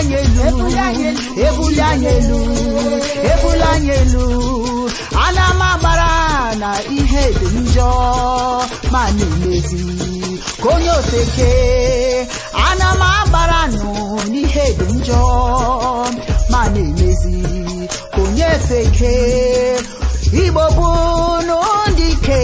ebulanyelu ebulanyelu ebulanyelu ana m agbara na ihe dị njọ ma na-emezi ka onye ofeke ana m agbara nụ n'ihe dị njọ ma na-emezi ka onye ofeke igbo bụ n'ụdị ike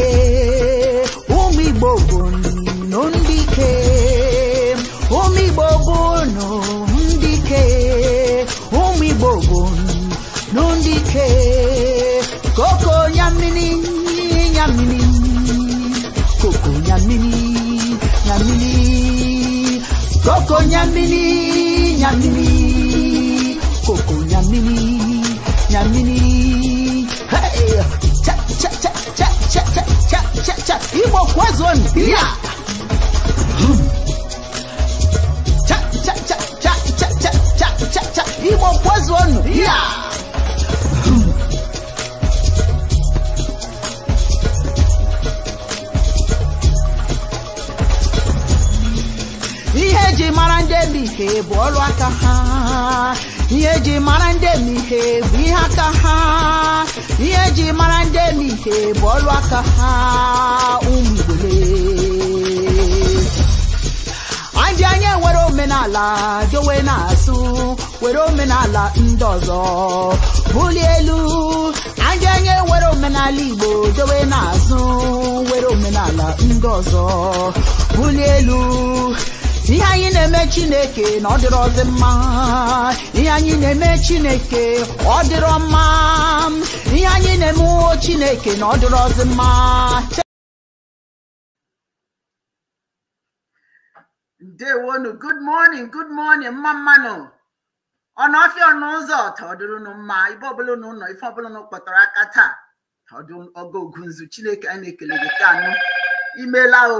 koko nyamini nyamini koko nyamini nyamini hey cha cha cha cha cha cha cha cha cha imo kwazon pia cha cha cha cha cha cha cha cha imo kwazon pia yeah. eji mara ndị emihe bụ ọrụ aka ha ihe eji mara ndị emihe bụ ihe aka ha ihe eji mara ndị emihe bụ ọrụ aka ha ụmụ ndị anyị nwere omenala dowe na-asụ were omenala ndị ọzọ bulie elu ndị anyị nwere omenala igbo dowe na-azụ were omenala ndị ọzọ bulie elu ihe anyị na-eme chineke na ọ dịrị dịrọzi mma ihe anyị na-eme chineke ọ dịrọ mma ihe anyị na-eme uwo chineke na ọ dịrị dịrọzi mma ndewonu good morning good morning mma mmanụ ọnụ ọfịa ọnụ ụzọ tọdụrụnụ mma ibe ọbụla na ụnọ ife ọbụla kpọtara aka taa ọdụ ọgọ ogunzu chineke anyị na-ekele gị ka anụ imela o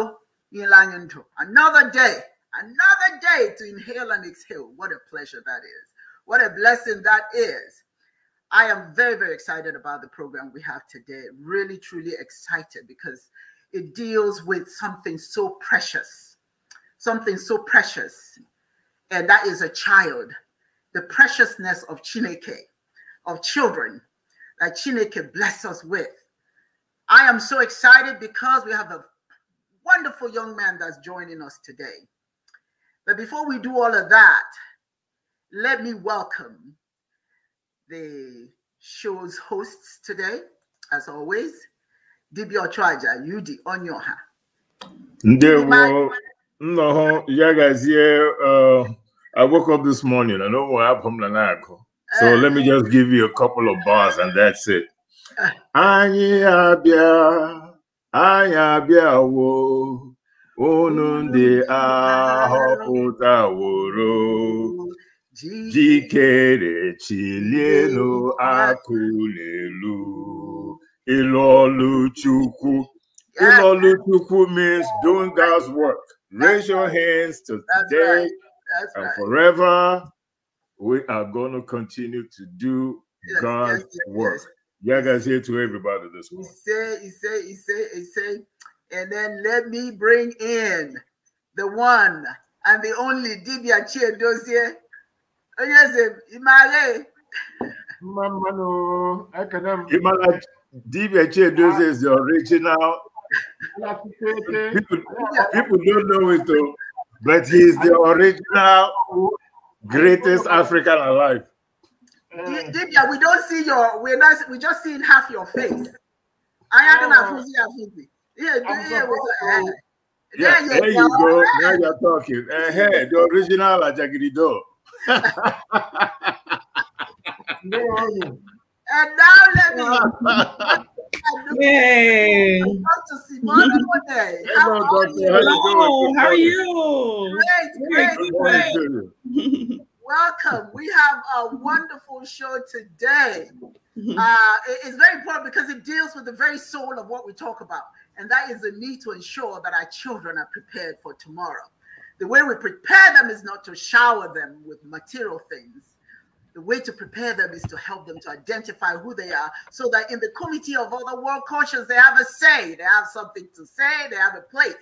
nyela anyị ndụ another day Another day to inhale and exhale. What a pleasure that is. What a blessing that is. I am very, very excited about the program we have today. Really, truly excited because it deals with something so precious, something so precious, and that is a child. The preciousness of Chineke, of children that Chineke bless us with. I am so excited because we have a wonderful young man that's joining us today. But before we do all of that, let me welcome the show's hosts today, as always, Dibia Ochoaja, Yudi Onyoha. yeah, guys. Yeah, uh, I woke up this morning. I know what happened to So eh. let me just give you a couple of bars and that's it. Eh. Anyị wo unu ndị ahọpụtaworo jikere chilienụ akụlelu ilolu ọlụ chukwu ịlụ chukwu means doing God's work raise your hands to today and forever we are going to continue to do God's work. Yeah, guys, here to everybody this morning. He say, he say, he say, he say. And then let me bring in the one and the only Dibia Chie Oh yes, Imare. Mamano, can have Dibia Chie Dozie is the original. people, people don't know it though, but he is the original greatest African alive. Dibia, we don't see your, we're not, we're just seeing half your face. I don't have yeah, yeah, there you go. Now you're talking. Uh, uh-huh, hey, the original Ajagidido. and now let me. Hey. Hey. How, are you? Hello, how are you? Great, great, great. Welcome. We have a wonderful show today. Uh, it's very important because it deals with the very soul of what we talk about and that is the need to ensure that our children are prepared for tomorrow. The way we prepare them is not to shower them with material things. The way to prepare them is to help them to identify who they are so that in the committee of other world cultures, they have a say, they have something to say, they have a place.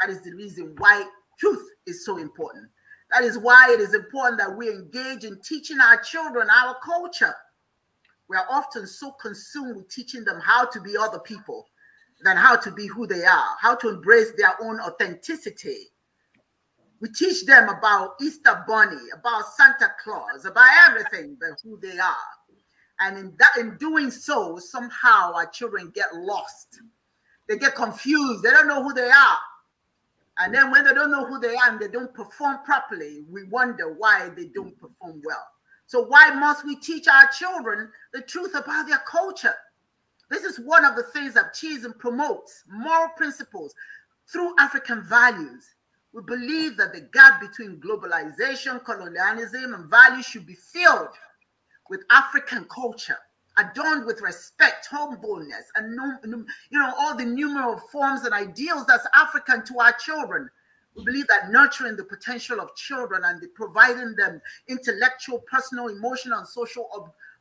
That is the reason why truth is so important. That is why it is important that we engage in teaching our children our culture. We are often so consumed with teaching them how to be other people than how to be who they are, how to embrace their own authenticity. We teach them about Easter Bunny, about Santa Claus, about everything but who they are. And in that in doing so, somehow our children get lost. They get confused. They don't know who they are. And then when they don't know who they are and they don't perform properly, we wonder why they don't perform well. So why must we teach our children the truth about their culture? This is one of the things that Chisholm promotes moral principles through African values. We believe that the gap between globalization, colonialism, and values should be filled with African culture, adorned with respect, humbleness, and you know all the numerous forms and ideals that's African to our children. We believe that nurturing the potential of children and the providing them intellectual, personal, emotional, and social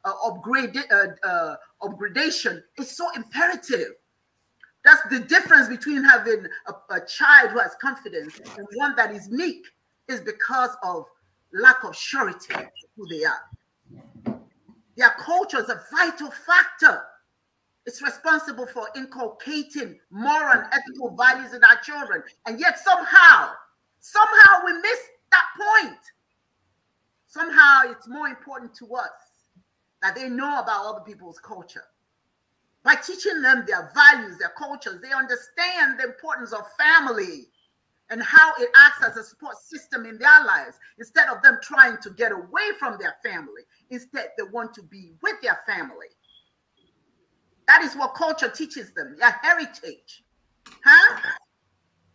uh, upgrade, uh, uh, upgradation is so imperative. That's the difference between having a, a child who has confidence and one that is meek is because of lack of surety who they are. Their culture is a vital factor. It's responsible for inculcating moral and ethical values in our children. And yet somehow, somehow we miss that point. Somehow it's more important to us that they know about other people's culture. By teaching them their values, their cultures, they understand the importance of family and how it acts as a support system in their lives. Instead of them trying to get away from their family, instead they want to be with their family. That is what culture teaches them, their heritage. Huh?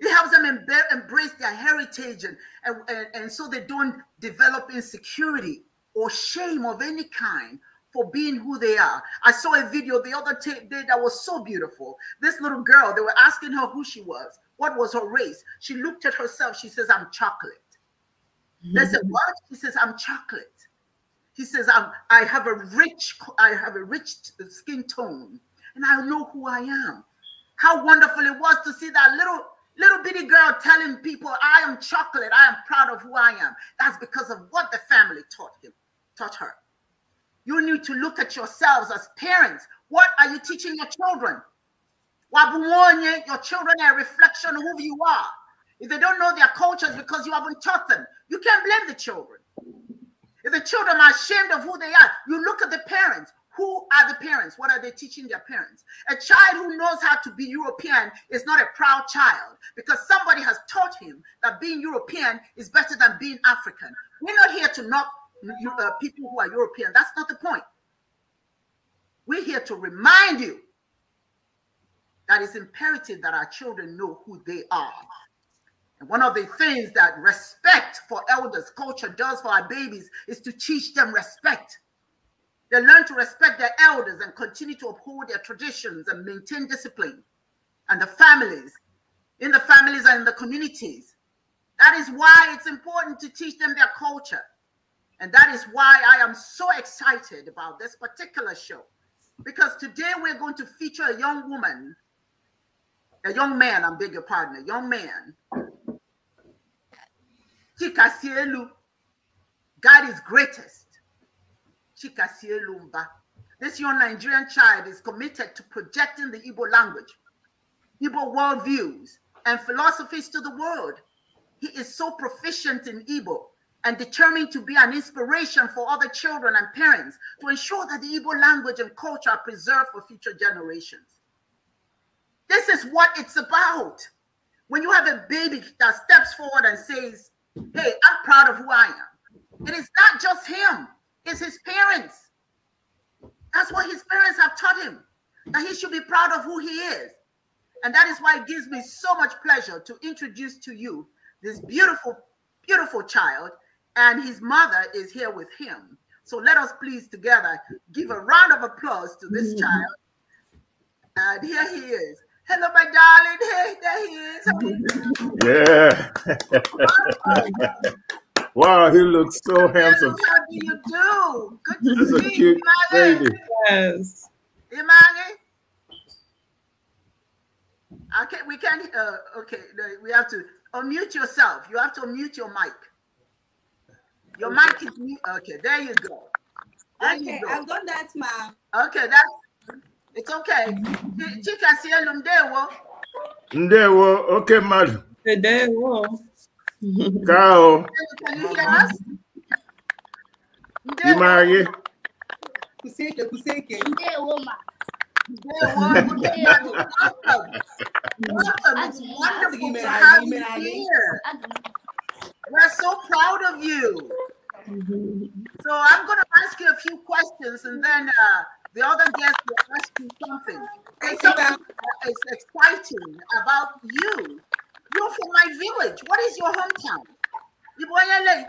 It helps them embrace their heritage and, and, and so they don't develop insecurity or shame of any kind for being who they are. I saw a video the other day that was so beautiful. This little girl, they were asking her who she was, what was her race. She looked at herself. She says, I'm chocolate. Mm -hmm. They said, What? She says, I'm chocolate. He says, I'm, I have a rich, I have a rich skin tone, and I know who I am. How wonderful it was to see that little little bitty girl telling people, I am chocolate, I am proud of who I am. That's because of what the family taught him, taught her. You need to look at yourselves as parents. What are you teaching your children? Your children are a reflection of who you are. If they don't know their cultures because you haven't taught them, you can't blame the children. If the children are ashamed of who they are, you look at the parents. Who are the parents? What are they teaching their parents? A child who knows how to be European is not a proud child because somebody has taught him that being European is better than being African. We're not here to knock uh, people who are European. That's not the point. We're here to remind you that it's imperative that our children know who they are. And one of the things that respect for elders culture does for our babies is to teach them respect. They learn to respect their elders and continue to uphold their traditions and maintain discipline and the families, in the families and in the communities. That is why it's important to teach them their culture. And that is why I am so excited about this particular show. Because today we're going to feature a young woman, a young man, I'm beg your pardon, a young man. Chikasielu, God is greatest. Chikasielumba. This young Nigerian child is committed to projecting the Ibo language, Ibo worldviews, and philosophies to the world. He is so proficient in Ibo and determined to be an inspiration for other children and parents to ensure that the Igbo language and culture are preserved for future generations. This is what it's about. When you have a baby that steps forward and says, hey, I'm proud of who I am. It is not just him, it's his parents. That's what his parents have taught him, that he should be proud of who he is. And that is why it gives me so much pleasure to introduce to you this beautiful, beautiful child and his mother is here with him. So let us please together give a round of applause to this mm. child. And here he is. Hello, my darling. Hey, there he is. Yeah. wow, he looks so handsome. How do you do? Good to see a cute baby. Yes. Imagine. Okay, we can't, uh, okay, we have to unmute yourself. You have to unmute your mic. Your mic is me. Okay, there you go. There okay, you go. I've done that, ma'am. Okay, that's it's okay. Chika sielu ndewo. Ndewo. Okay, madam. Ndewo. Kao. Can you hear us? Ndewo. Kuseke, kuseke. Ndewo, ma. Welcome. Welcome. It's wonderful to have you here. We're so proud of you. So I'm going to ask you a few questions, and then uh, the other guest will ask you something. It's something exciting about you. You're from my village. What is your hometown? Iboyele.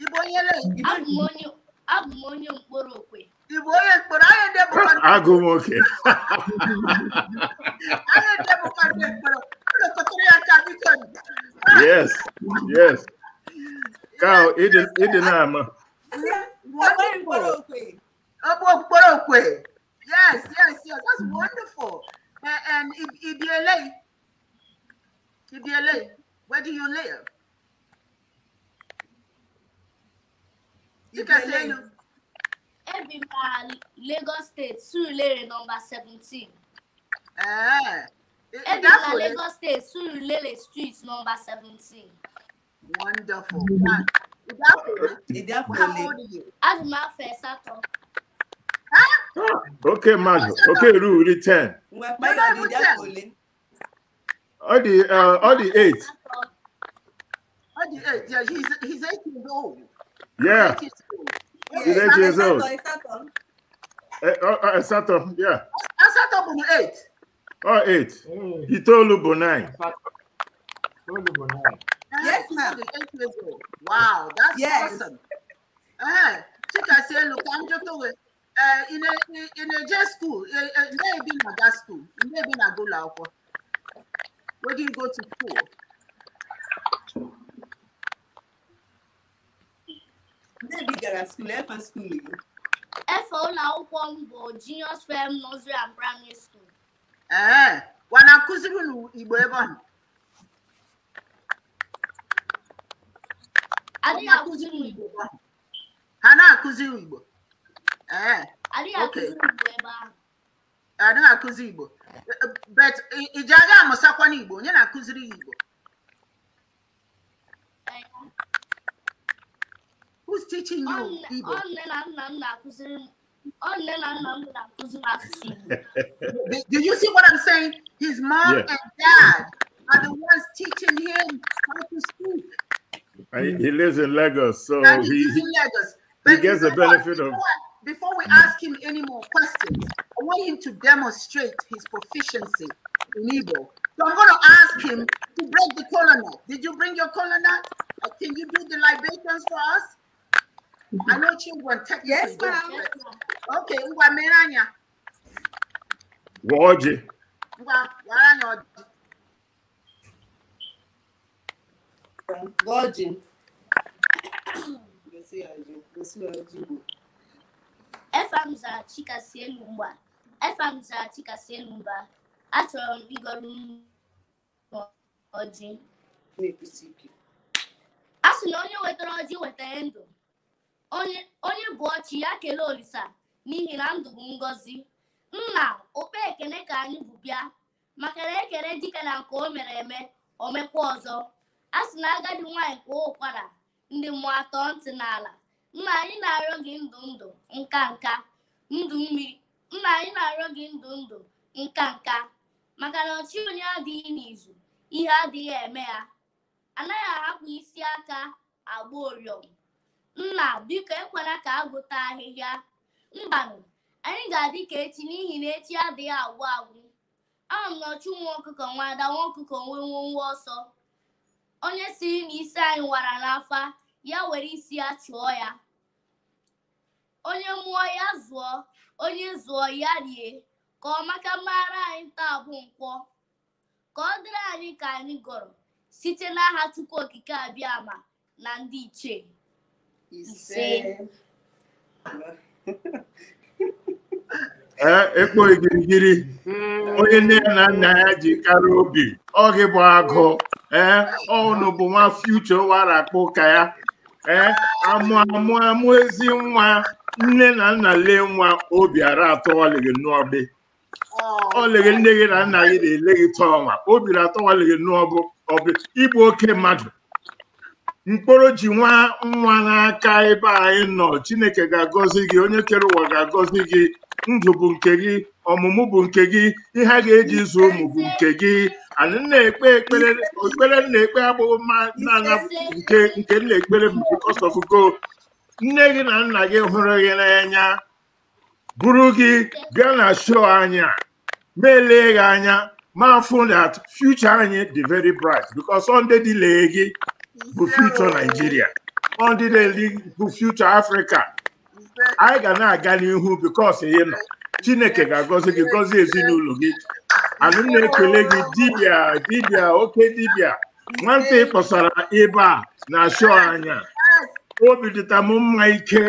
Iboyele. Agmonyo. Agmonyo Mborokwe. Iboyele. I Mborokwe. Agmonyo Mborokwe. Yes, yes. Kyle, it did, it did not, man. Wonderful. Yes, yes, yes. That's wonderful. And, and if where do you live? You can say. Everywhere, Lagos State, Surulere, number 17. Ebi na Lagos State, Surulere Street, number seventeen. Wonderful. Adùmáfẹ́ sátọ. Okay, Madu. Okay, Ru, return. All the uh, all the eight. All the eight. Yeah, he's he's eight years old. Yeah. He's eight years old. Uh, Sato, yeah. Sato, yeah. eight. Oh, eight. Hey. Itoolu Bonai. Itoolu Bonai. Yes, ma'am. Wow, that's yes. awesome. Uh, Chika say, look, I'm just away. Uh, in a in a J school, maybe not that school, maybe not go lauko. Where do you go to school? Maybe gara school, F school. F O Lauko, junior, swim, nursery, and primary school. ee eh, wanakụziri Igbo ebe ọ ha na-akụziri Igbo ee eh, adịghị akụzi Igbo bet iji aga amụsakwana Igbo onye na-akụziri ya Igbo who's teaching you Igbo? Do you see what I'm saying? His mom yeah. and dad are the ones teaching him how to speak. He, he lives in Lagos, so and he, he, Lagos. he gets the benefit of. Before we ask him any more questions, I want him to demonstrate his proficiency in Igbo. So I'm going to ask him to break the colonel. Did you bring your colonel? Can you do the libations for us? yes ma'am. Okay, ngwa mere anya. Gwa ọjị. Ngwa Chika si elu mgba. Efam Chika si elu mba. Achọrọ m ịgọrọ m A sị na onye wetara ọjị wetara ndụ. onye bụ ọchị ya kelee olisa n'ihi na ndụ bụ ngọzi nna okpe ekene ka anyị bụ bịa maka na ekele dike na nke o mere eme omekwa ọzọ a sị na agadi nwaanyị kwuo ụkwara ndị mmụọ atọ ntị n'ala nna anyị na-arịọ gị ndụ ndụ nka nka ndụ mmiri nna anyị na-arịọ gị ndụ ndụ nka nka maka na ọchị onye adịghị n'izu ihe adịghị eme ya anaghị ahapụ isi aka agba oriọm nna biko ekwela ka a gụta ahịhịa mbanụ anyị ga-adị ka echi n'ihi na echi adịghị agwụ agwụ ahụ m nọchu nwa ọkụkọ nwa ada nwa ọkụkọ nwee nwa ọsọ onye siri na isi anyị wara n'afa ya were isi ya chụọ ya onye mụọ ya zụọ onye zụọ ya rie ka ọ maka mara anyị taa bụ nkwọ ka ọ dịrị anyị ka anyị gọrọ site n'aha Chukwu Okike abịa ama na ndị ichie ise ekpo igirigiri hmm. onye nne ya na nna ya ji karịa obi ọ gị bụ agụ ee ọnụ bụ nwa fiuche warakpụ ka ya ee amụ amụ amụ ezi nwa nne na nna lee nwa obi ara atọ ọlịghị Ọ ọlịghị nne gị na nna gị na-ele gị tọọ nwa obi na atọ ọlịghị n'ọbụ ọbụ ịbụ oke mmadụ mkpụrụ ji nwa nwa n'aka ebe anyị nọ chineke ga-agọzi gị onye kere ụwa ga-agọzi gị ndụ bụ nke gị ọmụmụ bụ nke gị ihe a ga-eji zu ụmụ bụ nke gị anyị na-ekpe ekpere okpere na-ekpe agbụghị mma n'anya nke nke na-ekpere because of go nne gị na nna gị hụrụ gị n'anya buru gị bịa na show anyị melee gị anya ma fụ that future anyị dị very bright because sunday dị lee gị bụ future Nigeria ọ ndị na-eli bụ future Africa anyị ga na-aga n'ihu bikos ị nọ Chineke ga-agọzi gị gọzi ezinụlọ gị anụ na-ekele gị dibịa dibịa oke dibịa nwata ị kpọsara ebe a na-achụ anya obi dịta m mma ike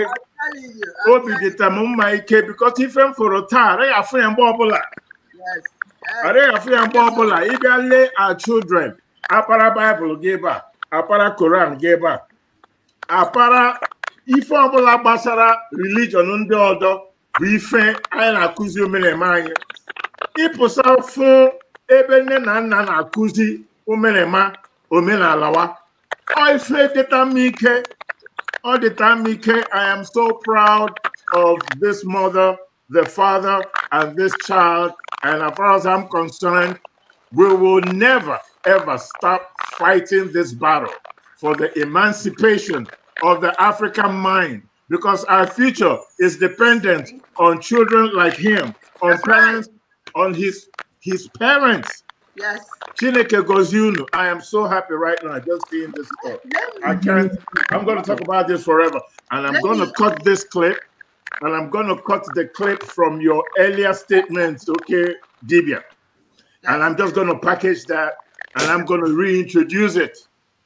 obi dịta m mma ike bikos ife m fụrụ taa araghị afụ ya mgbe ọbụla araghị afụ ya mgbe ọbụla ịbịa lee our children akpara baịbụl gị ebe a apara koran gị ebe a apara ife ọbụla gbasara religion ndị ọdọ bụ ife anyị na-akụzi anyị ịpụsa ebe nne na nna na-akụzi omenema ife dịta ọ dịta i am so proud of this mother the father and this child and as far as i'm concerned we will never ever stop fighting this battle for the emancipation of the African mind because our future is dependent on children like him, on That's parents, right. on his his parents. Yes. Chineke Gozunu, I am so happy right now just seeing this clip. I can't, I'm going to talk about this forever. And I'm going to cut this clip and I'm going to cut the clip from your earlier statements, okay, Dibia. And I'm just going to package that and I'm going to reintroduce it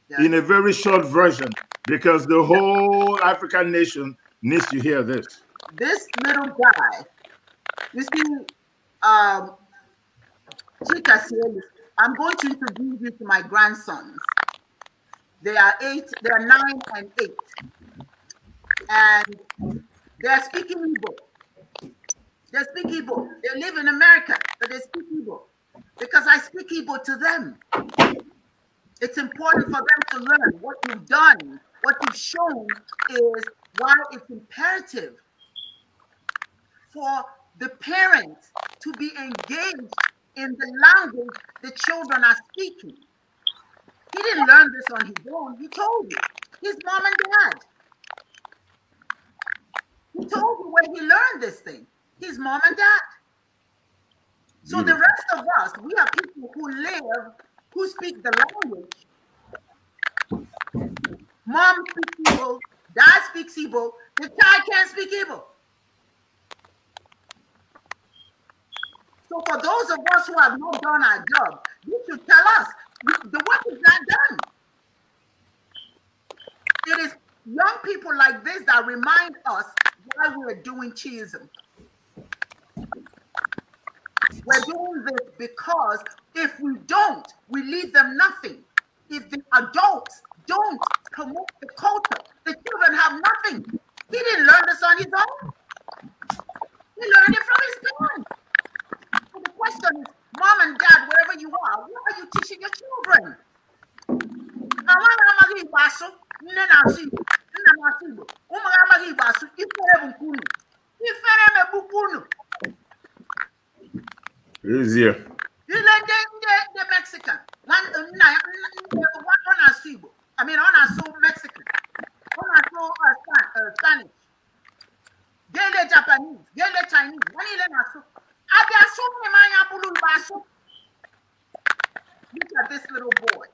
yeah. in a very short version because the whole African nation needs to hear this. This little guy, you see, um, I'm going to introduce you to my grandsons. They are eight, they are nine and eight. And they are speaking Igbo. They speak Igbo. They live in America, but they speak Igbo because I speak Igbo to them. It's important for them to learn what you've done, what you've shown is why it's imperative for the parents to be engaged in the language the children are speaking. He didn't learn this on his own. He told you. His mom and dad. He told you where he learned this thing. His mom and dad. So the rest of us, we are people who live, who speak the language. Mom speaks Igbo, dad speaks Igbo, the child can't speak Igbo. So for those of us who have not done our job, you should tell us the work is not done. It is young people like this that remind us why we're doing cheese. We're doing this because if we don't, we leave them nothing. If the adults don't promote the culture, the children have nothing. He didn't learn this on his own. He learned it from his parents. So the question is, mom and dad, wherever you are, what are you teaching your children? Is here? You like the, the, the Mexican. One, uh, one, one I mean, on a so Mexican. On a so uh, Spanish. Then the Japanese. Then the Chinese. One is a so. I got so man bulu basu. Look at this little boy.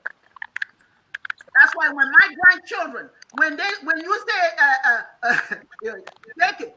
That's why when my grandchildren, when they, when you say, uh, uh, uh, take it,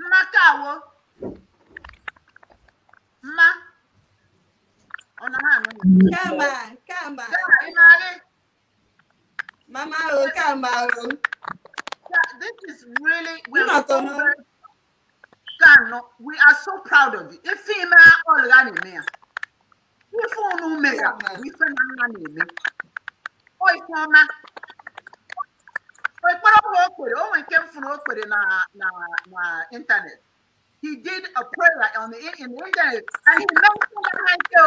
mmakawo mma ọ na kama kama mama o kama o this is really we are so we are so proud of you If female, all ya na If ya ife unu mere ya ife na nna na ekpere ọhụrụ o kwere o nwere nke he did a prayer on the in the internet and he mentioned aha ike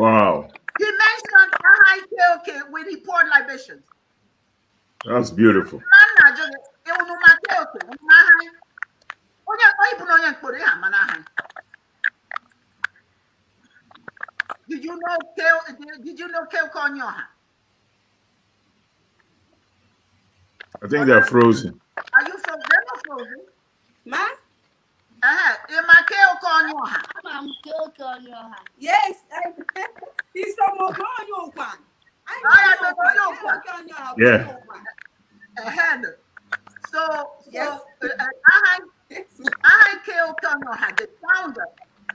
wow he mentioned aha when he poured libations that's beautiful did you know kale did you know kale konyoha I think they're frozen. Are you frozen? they or frozen. Ma? Uh-huh. Yes. He's from Okonyoha. Oh, yeah. Uh-huh. So, yes. so uh, uh, I, I, K.O. Konoha, the founder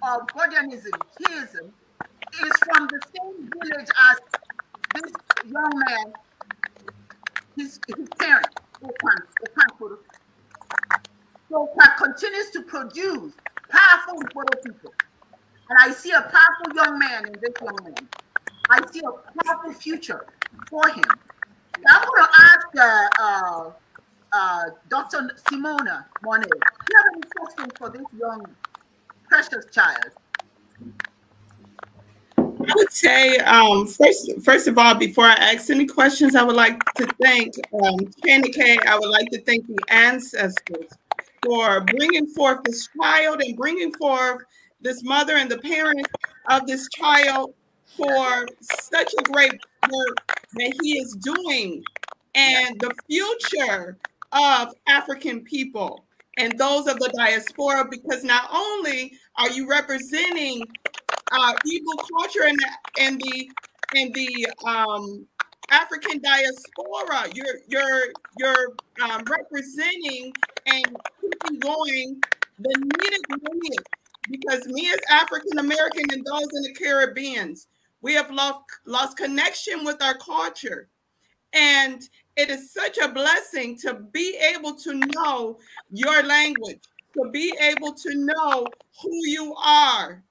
of Gordionism, Theism, is from the same village as this young man his, his parent, so Park continues to produce powerful people. And I see a powerful young man in this young man. I see a powerful future for him. I'm going to ask uh, uh, uh, Dr. Simona Monet, do you have any questions for this young, precious child? I would say, um, first, first of all, before I ask any questions, I would like to thank um, Channing K. I would like to thank the ancestors for bringing forth this child and bringing forth this mother and the parents of this child for such a great work that he is doing and the future of African people and those of the diaspora, because not only are you representing uh, evil culture and the, and the and the um, African diaspora. You're you're you're um, representing and keeping going the needed lineage because me as African American and those in the Caribbeans, we have lost lost connection with our culture, and it is such a blessing to be able to know your language, to be able to know who you are,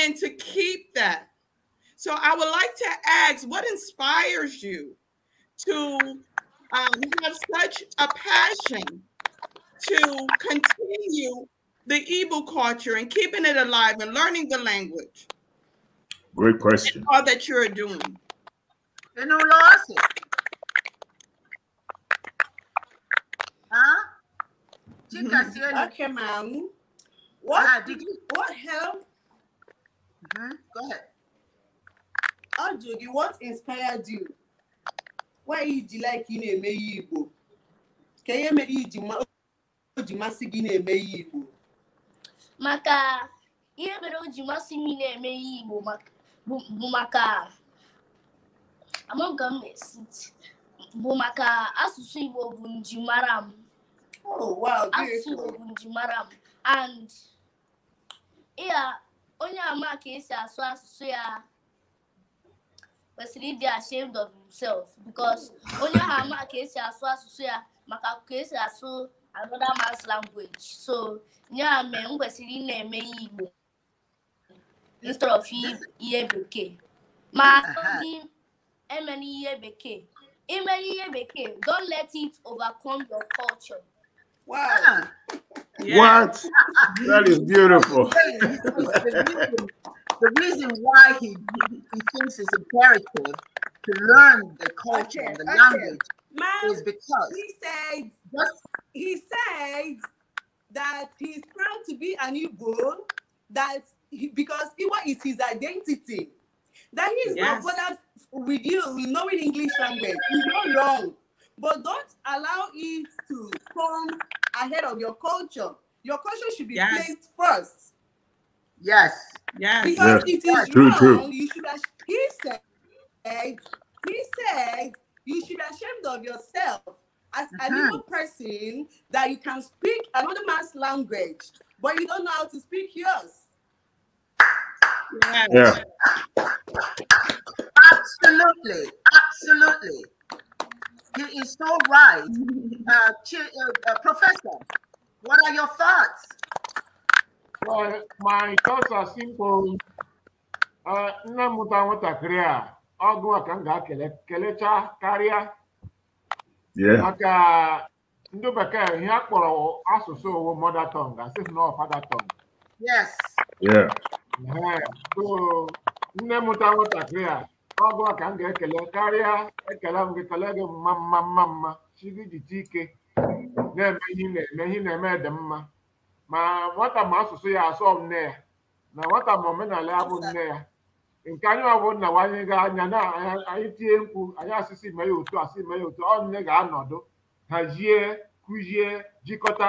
and to keep that. So I would like to ask what inspires you to um, have such a passion to continue the Igbo culture and keeping it alive and learning the language? Great question. All that you're doing. You know, losses. Huh? Mm -hmm. Okay, ma'am. What, ah, did you, what helped mm ahead. what inspired you? Why you like you na-eme ihe Igbo? Ka ihe mere o ji masị gị na-eme ihe Igbo? Maka ihe mere o ji masị m na-eme ihe Igbo bụ maka bụ maka asụsụ Igbo bụ njimara m. Oh, wow, asụsụ Igbo bụ njimara m and onye ama ka esi asụ asụsụ ya kwesịrị ịdị ashamed of himself because onye ahụ ama ka esi asụ asụsụ ya maka ka esi asụ another man's language so ya mee m kwesịrị ị na-eme ihe Igbo instead of ihe bekee ma asọghị emela ihe bekee emela ihe bekee don't let it overcome your culture Wow. Yeah. What? that is beautiful. the reason why he, he thinks it's imperative to learn the culture and the language Man, is because he said just, he said that he's proud to be an Igbo, that he, because Iwa is his identity, that he's yes. not bothered with you knowing English language. He's not wrong, but don't allow it to come ahead of your culture. Your culture should be yes. placed first. Yes. Yes. Because yes. it is true, wrong. True. You should he said, he said, you should be ashamed of yourself as a little uh-huh. person that you can speak another man's language, but you don't know how to speak yours. Yeah. Absolutely. Absolutely. He is so right. Uh, uh, uh, professor, what are your thoughts? Well, my thoughts are simple. Uh, nne m mụta nwatakịrị a ọgụ a ka m ga-akele kelecha karịa maka ndị bekee ihe a kpọrọ asụsụ owu mother tongue asị na ọ father tongue. Yes. Yeah. So nne mụta nwatakịrị a ọbụla ka m ga-ekele karịa ekele m gị kelee gị mma mma mma mma chi ike na-eme ihe na-eme ihe na-eme dị mma ma nwata ma asụsụ ya asọ nne ya na nwata ma omenala ya bụ nne ya nke anyị ọbụ nna nwanyị ga anya na anyị tie mkpu anyị asịsị ime ya otu asị ime ya otu ọ nne ga-anọdụ hazie kụzie jikọta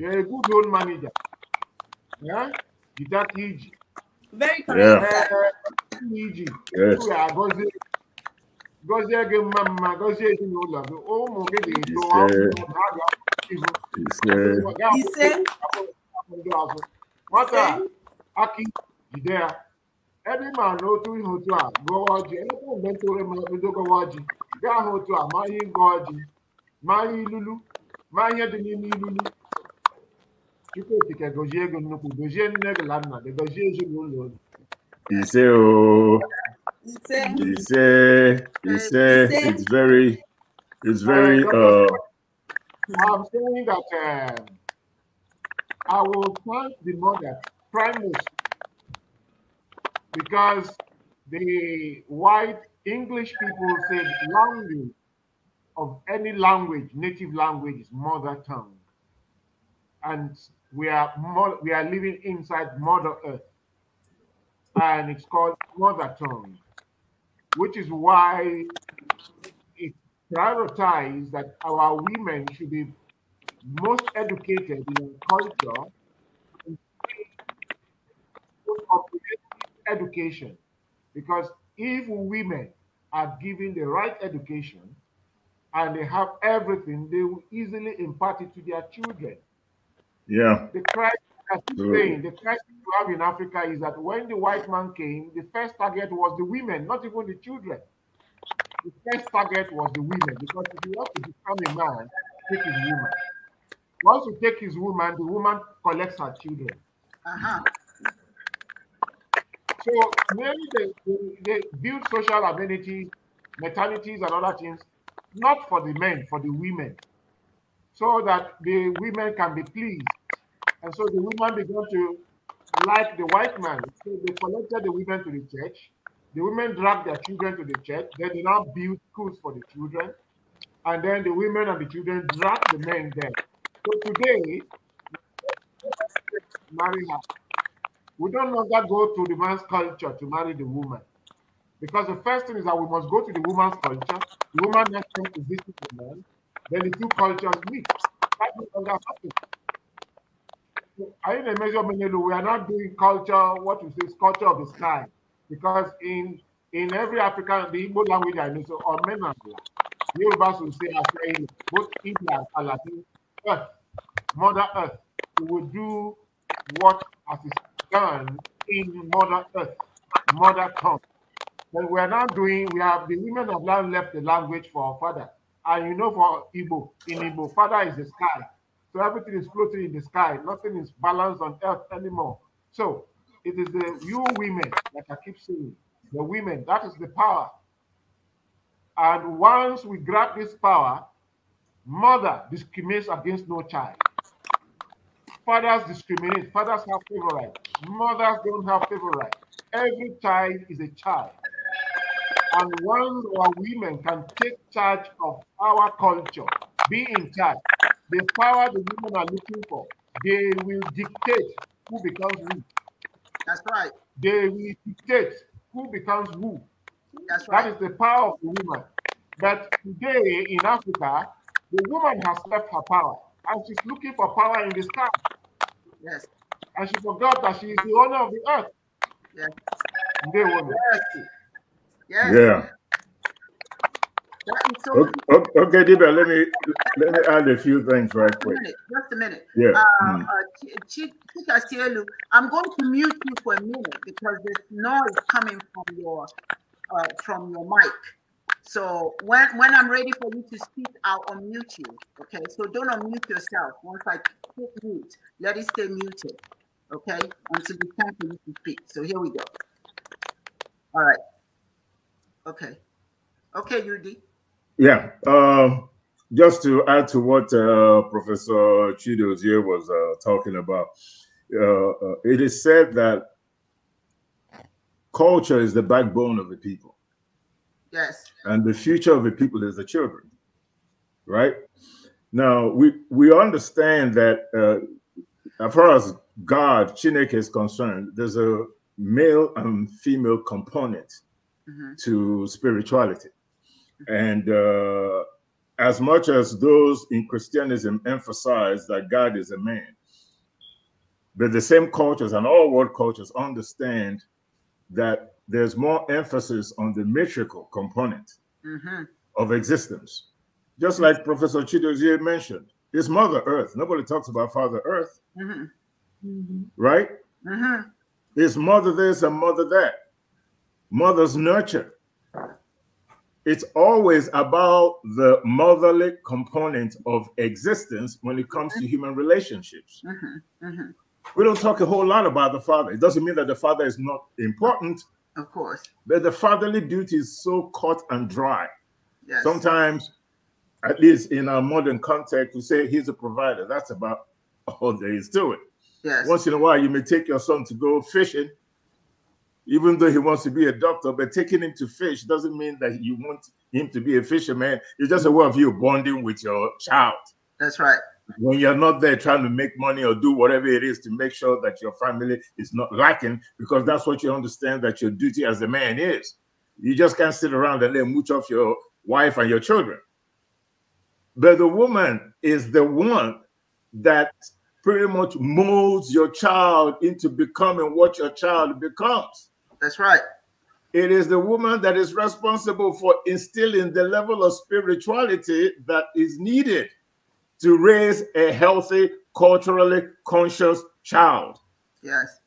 ya good manija manager jide aka iji iji ụlọ agọzie gọzie gị mma mma gọzie ezinụlọ gị ụmụ gị ga-eto ihu ndị ọzọ nwata aka jide ya ebe ị maara na otu ihe otu a gụọ ọjị elekwa mgbe ntụrụ ma bido gọwa ọjị a ma ma ma gozie gozie nne gozie Ise o. Ise. Ise. It's very, it's very. Uh, I'm saying that uh, I will thank the mother, Primus, because the white English people said language of any language, native language is mother tongue. And we are more, we are living inside Mother Earth and it's called mother tongue, which is why it prioritized that our women should be most educated in culture, education, because if women are given the right education and they have everything, they will easily impart it to their children. Yeah. The crisis, as you're saying, the crisis have in Africa is that when the white man came, the first target was the women, not even the children. The first target was the women, because if you want to become a man, take his woman. Once you take his woman, the woman collects her children. Uh-huh. So maybe they, they, build social amenities, maternities, and other things, not for the men, for the women, so that the women can be pleased. And so the women began to like the white man. So they collected the women to the church. The women dragged their children to the church. Then they now built schools for the children. And then the women and the children dragged the men there. So today, marry her. We don't longer go to the man's culture to marry the woman. Because the first thing is that we must go to the woman's culture. The woman next time to visit the man. Then the two cultures meet. That no longer happens in a major we are not doing culture, what is this culture of the sky, because in in every African, the Igbo language I know, so or the Yorubas will say Afraina, both India and Latin, Earth, Mother Earth. We will do what as is done in Mother Earth, Mother Tongue. But we are not doing, we have the women have now left the language for our father. And you know, for Igbo, in Igbo, father is the sky so everything is floating in the sky. Nothing is balanced on earth anymore. So it is the you women, like I keep saying, the women, that is the power. And once we grab this power, mother discriminates against no child. Fathers discriminate. Fathers have favorite. Mothers don't have favorite. Every child is a child. And once our women can take charge of our culture, be in charge, The power the women are looking for, they will dictate who becomes who. That's right. They will dictate who becomes who. That's right. That is the power of the woman. But today in Africa, the woman has left her power and she's looking for power in the sky. Yes. And she forgot that she is the owner of the earth. Yes. They were yes. yes. Yeah. okay, okay Deba, let me let me add a few things right just quick. A minute, just a minute. Yeah. Uh, mm. uh, Ch I'm going to mute you for a minute because there's noise coming from your uh, from your mic. So when when I'm ready for you to speak, I'll unmute you. Okay. So don't unmute yourself. Once I click mute, let it stay muted. Okay. Until it's time for you to speak. So here we go. All right. Okay. Okay, Yudi. Yeah. Um, just to add to what uh, Professor Chidozie was uh, talking about, uh, uh, it is said that culture is the backbone of the people. Yes. And the future of the people is the children, right? Now, we, we understand that uh, as far as God, Chineke is concerned, there's a male and female component mm -hmm. to spirituality. And uh, as much as those in Christianism emphasize that God is a man, but the same cultures and all world cultures understand that there's more emphasis on the metrical component mm-hmm. of existence. Just like Professor Chidozie mentioned, it's Mother Earth. Nobody talks about Father Earth, mm-hmm. Mm-hmm. right? Mm-hmm. It's Mother this and Mother that. Mothers nurture it's always about the motherly component of existence when it comes to mm-hmm. human relationships. Mm-hmm, mm-hmm. We don't talk a whole lot about the father. It doesn't mean that the father is not important. Of course. But the fatherly duty is so cut and dry. Yes. Sometimes, at least in our modern context, we say he's a provider. That's about all there is to it. Yes. Once in a while, you may take your son to go fishing even though he wants to be a doctor, but taking him to fish doesn't mean that you want him to be a fisherman. It's just a way of you bonding with your child. That's right. When you're not there trying to make money or do whatever it is to make sure that your family is not lacking, because that's what you understand that your duty as a man is. You just can't sit around and then mooch off your wife and your children. But the woman is the one that pretty much molds your child into becoming what your child becomes. That's right. It is the woman that is responsible for instilling the level of spirituality that is needed to raise a healthy, culturally conscious child. Yes.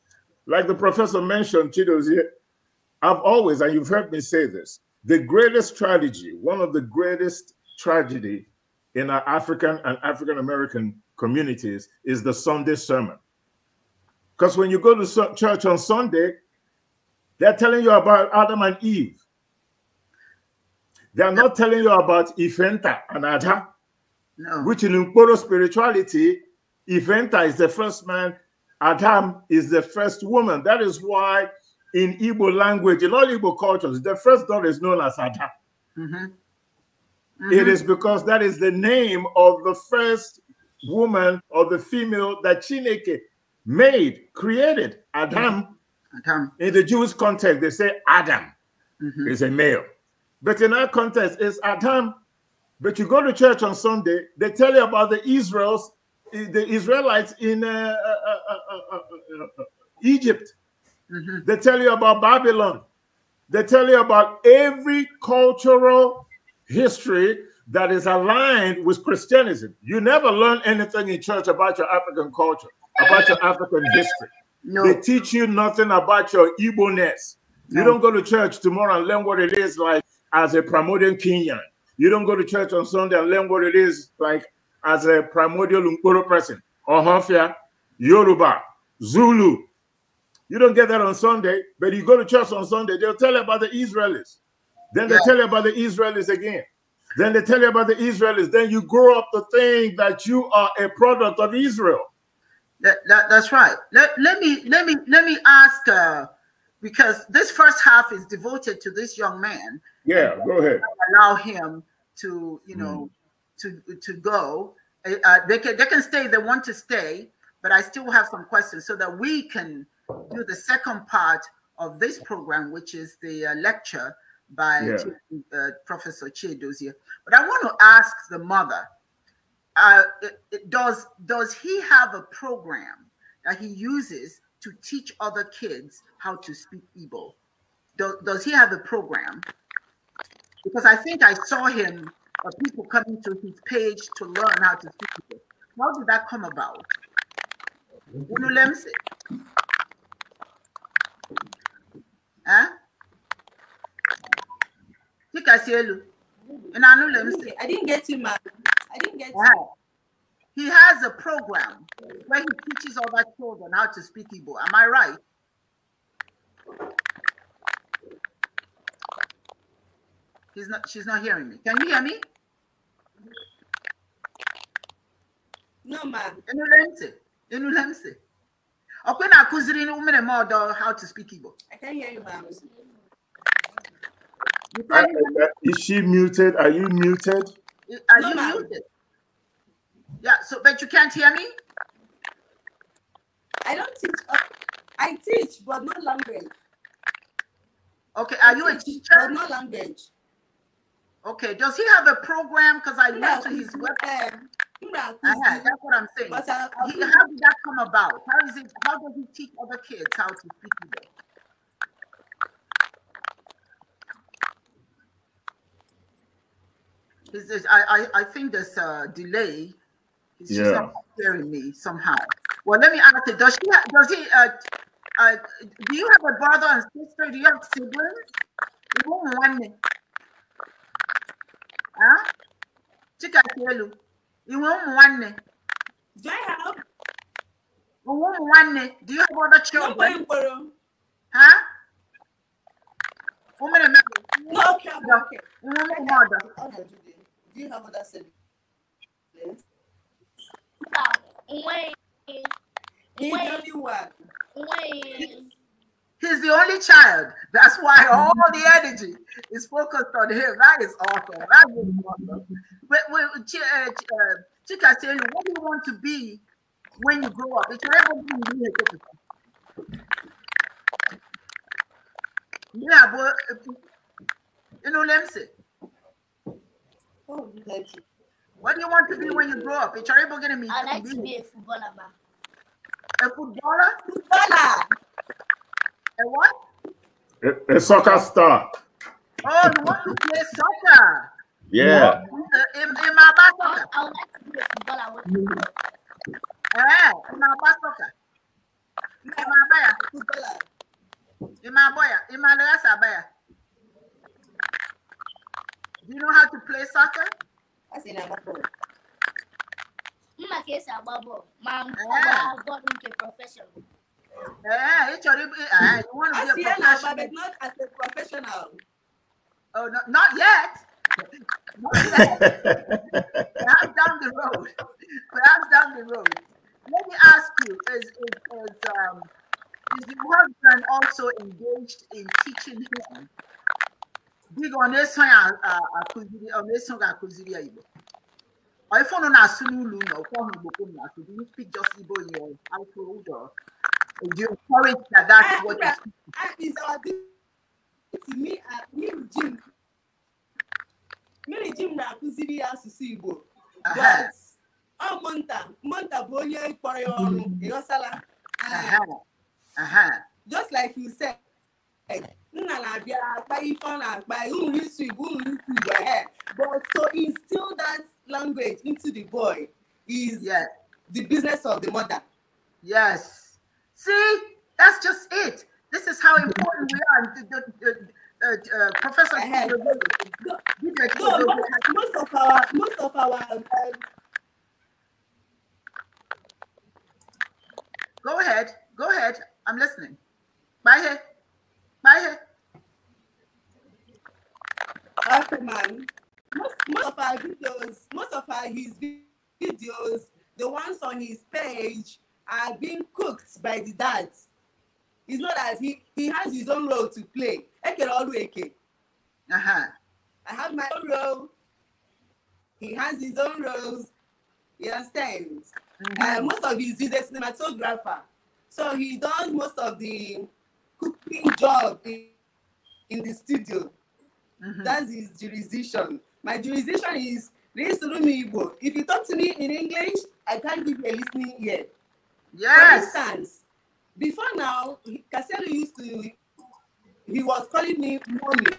Like the professor mentioned, Chido's here, I've always, and you've heard me say this, the greatest tragedy, one of the greatest tragedy in our African and African American communities is the Sunday sermon. Because when you go to church on Sunday, they're telling you about Adam and Eve. They are not telling you about Ifenta and Ada, no. which in Nkoro spirituality, Ifenta is the first man, Adam is the first woman. That is why in Igbo language, in all Igbo cultures, the first daughter is known as Ada. Mm -hmm. Mm -hmm. It is because that is the name of the first woman or the female that Chineke made, created, Adam. Adam. In the Jewish context, they say Adam mm -hmm. is a male. But in our context, it's Adam. But you go to church on Sunday, they tell you about the Israels, the Israelites in uh, uh, uh, Egypt. Mm -hmm. They tell you about Babylon. They tell you about every cultural history that is aligned with Christianism. You never learn anything in church about your African culture, about your African history. No. They teach you nothing about your Igbo-ness. No. You don't go to church tomorrow and learn what it is like as a primordial Kenyan. You don't go to church on Sunday and learn what it is like as a primordial Ngoro person. Hafia, Yoruba, Zulu. You don't get that on Sunday, but you go to church on Sunday, they'll tell you about the Israelis. Then they yeah. tell you about the Israelis again. Then they tell you about the Israelis. Then you grow up to think that you are a product of Israel. That, that that's right. Let, let me let me let me ask uh, because this first half is devoted to this young man. Yeah, go ahead. Allow him to you know mm. to to go. Uh, they can they can stay. They want to stay, but I still have some questions so that we can do the second part of this program, which is the uh, lecture by yeah. uh, Professor Chidozie. But I want to ask the mother uh, does does he have a program that he uses to teach other kids how to speak Igbo? Do, does he have a program? Because I think I saw him uh, people coming to his page to learn how to speak Igbo. How did that come about? I didn't get you, mad. I didn't get wow. He has a program where he teaches other children how to speak Igbo. Am I right? He's not she's not hearing me. Can you hear me? No, ma'am. Inulemse. Inulemse. Okwe na akuziri umene mother how to speak Igbo. I can not hear you, ma'am. Is she muted? Are you muted? Are no, you ma'am. muted? Yeah, so but you can't hear me? I don't teach. Uh, I teach, but not language. Okay, are I you teach, a teacher? But not language. Okay, does he have a program? Because I went to his um, website. uh-huh, that's what I'm saying. But, uh, he, how did that come about? How is it? How does he teach other kids how to speak I, I, I think there's a delay. He's yeah. just not hearing me somehow. Well, let me ask you, does she, does he, uh, uh, do you have a brother and sister? Do you have siblings? You won't want me. Huh? You won't want me. Do I have? You won't want me. Do you have other children? No, huh? Woman, no, okay, okay. Woman, mother. Okay. Do you have other siblings? Ah, Wayne. He's Wayne. the only one. Wayne. He's the only child. That's why all the energy is focused on him. That is awesome. That is awesome. But, but uh, Chika, tell you, what do you want to be when you grow up? It's Yeah, but uh, you know let me say. What do you want to be when you grow up? It's terrible going to be. I like to be a footballer. Man. A footballer? Footballer. A what? A, a, soccer star. Oh, you want to play soccer? Yeah. In, in my soccer. I would like to be a footballer. Eh, yeah, in my soccer. In my baya. Footballer. In my boy, In my I baya. Do you know how to play soccer? mma ka esi agba bọọlụ ma mgbe ọ gbara bọọlụ nke prọfeshọn Uh, I want to be a professional. I but not as a professional. Oh, not yet. not yet. Perhaps down the road. Perhaps down the road. Let me ask you: Is is, the um, husband also engaged in teaching him dịga ọ na-eso ya uh, uh, akụziri ọ uh, na-eso gị akụziri ya igbo ife ụnụ na-asụ n'ụlọ ụlọ ọkwọhụ igbo na asụ do you speak just igbo ya afọ ụjọ do you encourage that that's what you speak Me, jim Me, Jim. na-akụziri ya asụsụ igbo ọ mụnta mụnta bụ onye kpọrọ ya ọrụ ịghọsala just like you said nna but to instill that language into the boy is yes. the business of the mother yes see that's just it this is how important we are the, the, the, uh, uh, Professor, uh, no, most, most of our most of our um, go ahead, go ahead. I'm listening. Bye. Bye. Okay, man. Most, most of our videos, most of our his videos, the ones on his page are being cooked by the dads. It's not that he, he has his own role to play. Eke Olu Eke. Uh-huh. I have my own role. He has his own roles. You understand? Mm-hmm. Uh, most of his he's a cinematographer. So he does most of the cooking job in, in the studio. Mm-hmm. That's his jurisdiction. My jurisdiction is Igbo. If you talk to me in English, I can't give you a listening ear. Yes. For instance, before now, Casero used to, he was calling me mommy.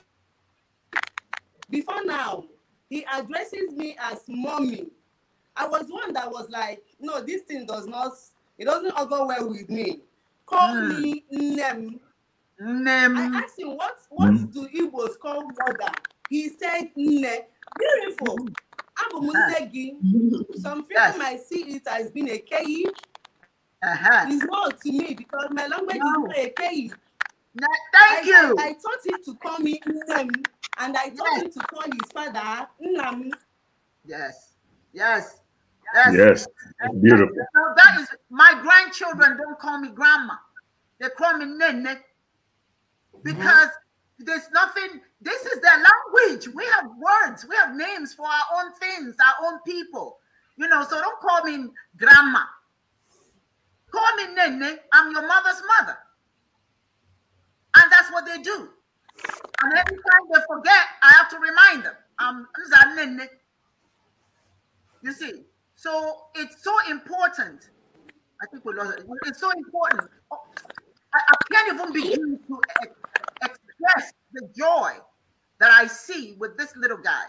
Before now, he addresses me as mommy. I was one that was like, no, this thing does not, it doesn't go well with me. Call mm. me Nem. Name. I asked him, what, what mm. do Igbos call mother? He said, Nne. Beautiful. Abụ m nne gị. Some people might see it as being a key. Uh-huh. It's not to me because my language no. is not a keyi. No, thank I, you. I, I taught him to call me Nnem and I taught yes. him to call his father Nnam. Yes. Yes. Yes. Yes. Beautiful. So that is my grandchildren don't call me grandma. They call me Nene because mm-hmm. there's nothing, this is their language. We have words, we have names for our own things, our own people. You know, so don't call me grandma. Call me Nene. I'm your mother's mother. And that's what they do. And every time they forget, I have to remind them. Nene. you see, so it's so important. I think we lost it. It's so important. I, I can't even begin to Yes, the joy that I see with this little guy.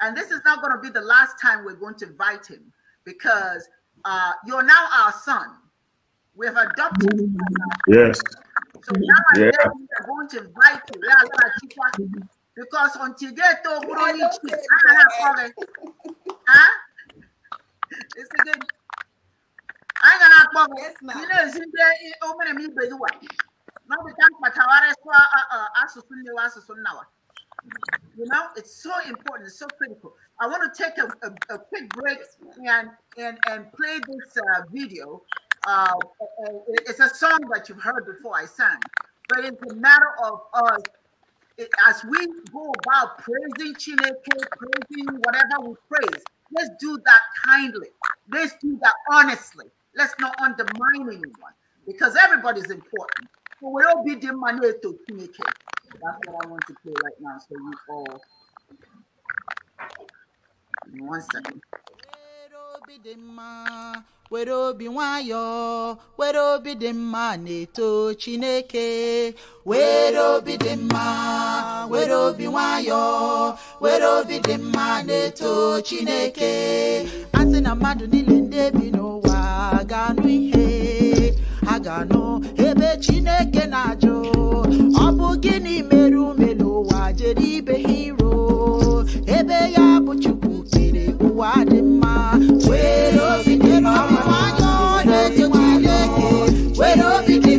And this is not going to be the last time we're going to invite him because uh, you're now our son. We've adopted. him. Yes. So now yeah. we're going to invite you. Because until they told huh? It's again. I'm gonna have Yes, ma'am. you know, it's in there. Open a me, uh, uh, you know, it's so important, it's so critical. I want to take a, a, a quick break and, and, and play this uh, video. Uh, it's a song that you've heard before I sang, but it's a matter of us as we go about praising Chineke, praising whatever we praise, let's do that kindly. Let's do that honestly. Let's not undermine anyone because everybody's important. So we all be the manual to make it. That's what I want to play right now. So you all. One second. obi dị mma were obi nwayọọ mma na chineke were obi dị mma were obi nwayọọ were obi dị mma na chineke asị na mmadụ niile ndị bi n'ụwa ga-anụ ihe ha ga-anụ chineke na-ajụ ọ bụ gịnị mere ume n'ụwa jere ibe ha iro ebe ya bụ chukwu kere ụwa dị mma were obi dị na were obi dị were obi dị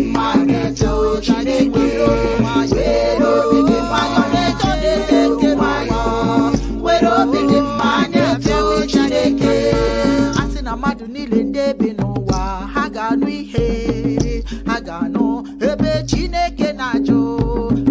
were obi dị a sị na mmadụ niile ndị ebe n'ụwa ha ga-anụ ihe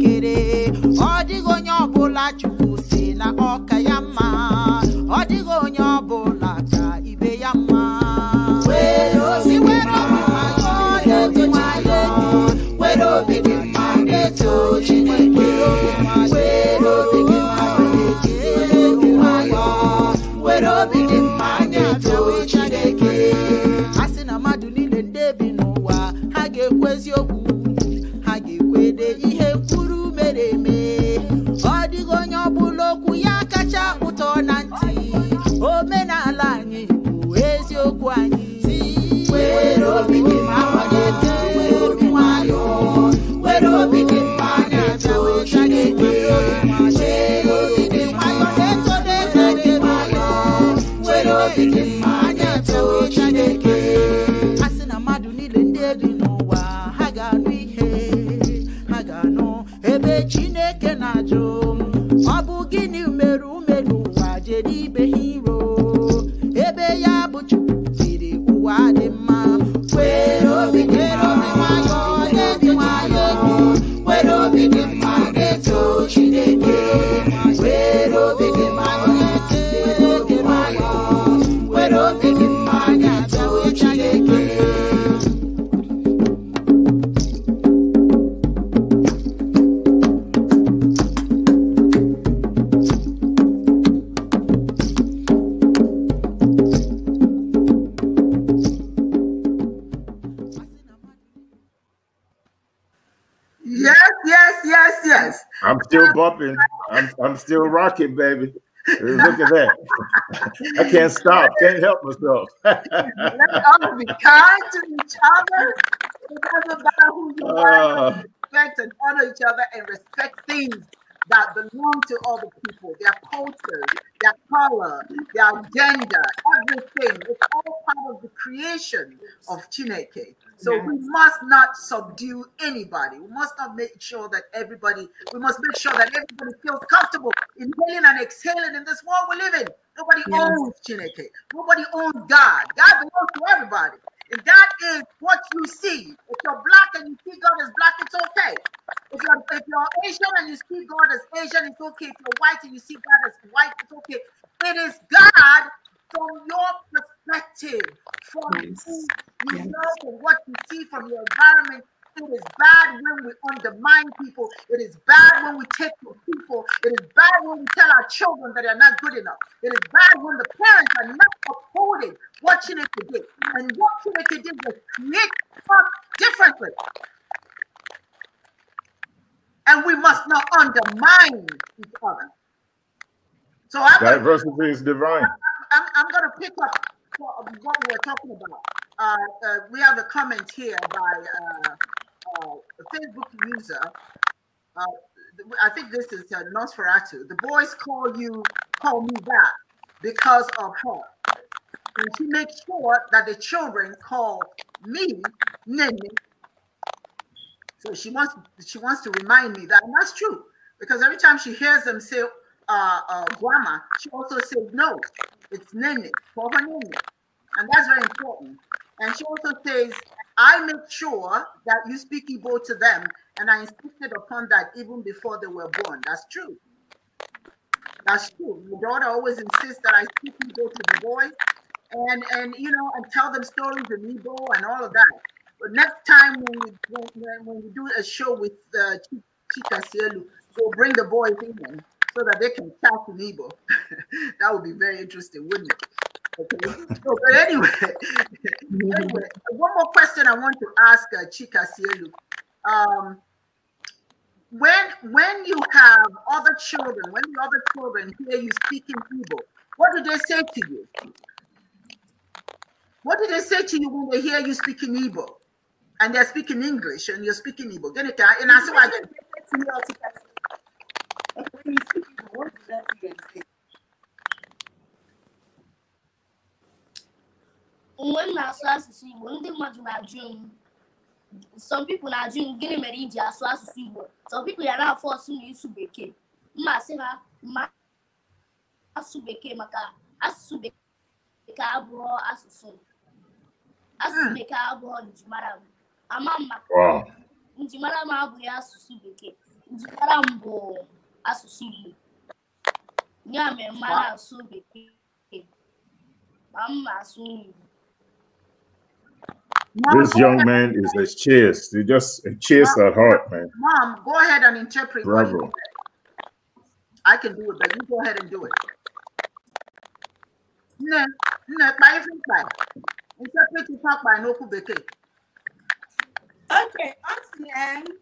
kere ọ dịghị onye ọbụla chukwu si na ọka ya mma ọ dịghị onye ọbụla ihe kwuru mere eme ọ dịghị onye ọbụla okwu ya kacha ụtọ na ntị omenala anyị bụ eziokwu market, baby. Look at that. I can't stop. Can't help myself. Let us all be kind to each other. It doesn't matter who you uh, are. Respect and honor each other and respect things that belong to other people, their culture, their color, their gender, everything. It's all part of the creation of Chineke. So yes. we must not subdue anybody. We must not make sure that everybody, we must make sure that everybody feels comfortable inhaling and exhaling in this world we live in. Nobody yes. owns Chineke. Nobody owns God. God belongs to everybody. If that is what you see, if you're black and you see God as black, it's okay. If you're, if you're Asian and you see God as Asian, it's okay. If you're white and you see God as white, it's okay. It is God from your perspective, from yes. you yes. know, from what you see from your environment, it is bad when we undermine people. It is bad when we take from people. It is bad when we tell our children that they're not good enough. It is bad when the parents are not upholding what Chineke did. And what Chineke did was create us differently. And we must not undermine each other. So I'm diversity gonna, is divine. I'm, I'm, I'm going to pick up what we were talking about. Uh, uh, we have a comment here by uh, uh, Facebook user. Uh, I think this is uh, Nosferatu. The boys call you, call me back because of her. And she makes sure that the children call me Nene. So she wants she wants to remind me that, and that's true because every time she hears them say uh, uh, grandma, she also says no, it's Nene, for her Nene, and that's very important. And she also says I made sure that you speak Igbo to them, and I insisted upon that even before they were born. That's true. That's true. My daughter always insists that I speak Igbo to the boys, and and you know, and tell them stories in Igbo and all of that. But next time when we when, when we do a show with uh, Chika Sielu, we'll bring the boys in so that they can talk in Igbo. that would be very interesting, wouldn't it? so, but anyway, anyway, one more question I want to ask uh, Chika Sielu. Um, when when you have other children, when the other children hear you speaking Igbo, what do they say to you? What do they say to you when they hear you speaking Igbo? And they're speaking English and you're speaking Igbo. Get it? And I saw again. what do they say? mgbe m na-asụ asụsụ Igbo ndị mmadụ na-ajụ m some people na-ajụ m gịnị mere iji asụ asụsụ Igbo some people ya na-afọ ọsụ na ịsụ bekee mma sị ha ma asụ bekee maka asụsụ bekee abụọ asụsụ asụsụ bekee abụọ njimara m ama m maka njimara m abụghị asụsụ bekee njimara m bụ asụsụ Igbo ya mere mma na-asụ bekee ma mma asụ Igbo Mom, this young man is a chase. He just a chase at heart, man. Mom, go ahead and interpret. Bravo. I can do it, but you go ahead and do it. No, no, by Interpret it talk by Noku Beke. Okay, Austin.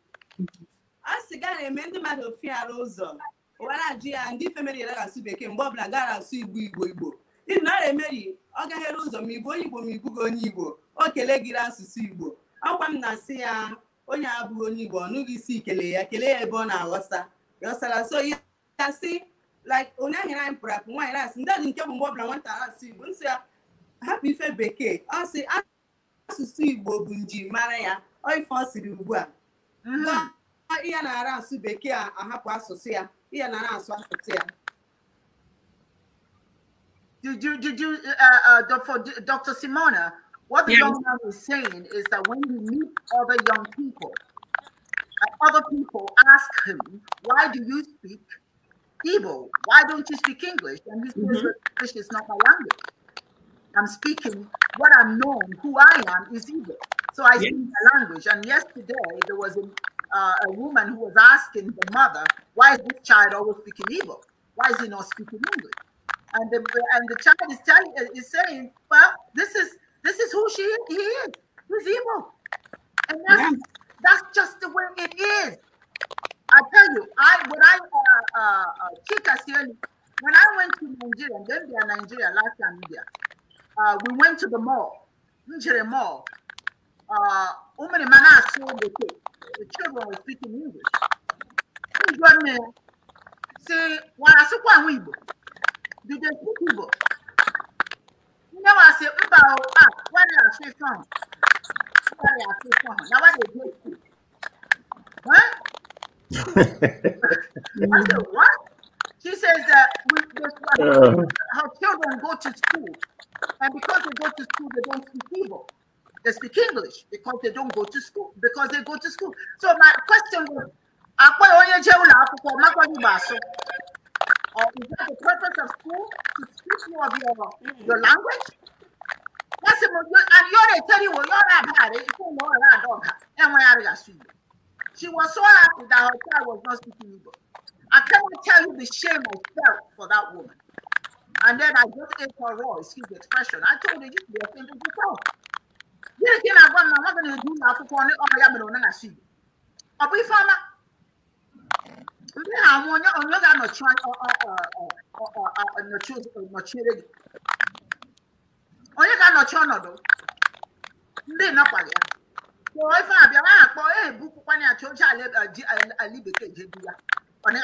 Austin, got a mending matter of fear, Rosa. What I do, and different men are asking, Bob Lagara, see, we will go. Ndị Naira Mary ọ gaghere ụzọ ma ịbụ onye Igbo ma ịbụghị onye Igbo o kele gị asụsụ Igbo ọkwa m na-asị ya onye abụghị onye Igbo ọ isi kelee ya kelee ya ebe ọ na-aghọsa ghọsara so ya asị like onye ahịrị anyị pụrụ apụ nwaanyị asị ndị adị nke bụ mgbe ọbụla nwata asụ Igbo nsị ya hapụ ife bekee ọ sị asụsụ Igbo bụ njirimara ya ọ ife ọ siri ugbu a mm-hmm. ihe na-ara asụ bekee a ahapụ asụsụ ya ihe na-ara asụ asụsụ ya Did you did you uh, uh, for Dr. Simona? What the yes. young man is saying is that when you meet other young people, uh, other people ask him, "Why do you speak evil Why don't you speak English?" And he says, mm-hmm. "English is not my language. I'm speaking what I'm known, who I am is evil So I speak my language." And yesterday there was a, uh, a woman who was asking the mother, "Why is this child always speaking evil? Why is he not speaking English?" and the and the child is telling is saying, "Well, this is this is who she is. he is. He's evil," and that's yeah. that's just the way it is. I tell you, I when I uh, uh, uh when I went to Nigeria, then they are Nigeria last time India. Uh, we went to the mall, Nigeria mall. Uh, women mana sold the kids. The children were speaking English. Who's your Say, "Why I so did they speak Igbo? You know, I say, Mba, ah, what are you from? What are you from? Now, what did they speak? Huh? I said, what? She says that we, we, uh. her children go to school, and because they go to school, they don't speak Igbo. They speak English because they don't go to school, because they go to school. So my question was, uh, is that the purpose of school to teach you of your, your language? That's the most. and you're already tell you well, you're not bad. Eh, you don't know that dog. And when I got she was so happy that her child was not speaking Igbo. I cannot tell you the shame I felt for that woman. And then I just ate her raw, excuse the expression. I told her, you should be offended yourself. This thing I've got, I'm not going to do now. I'm going to do now. I'm going to do now. Ndị a onye ga-anọchi ọnọdụ ndị nọkwaghị ya kpọọ ife abịa ha akpọ ebupụkwana ya chọọ oche ala bekee jebu ya ọ na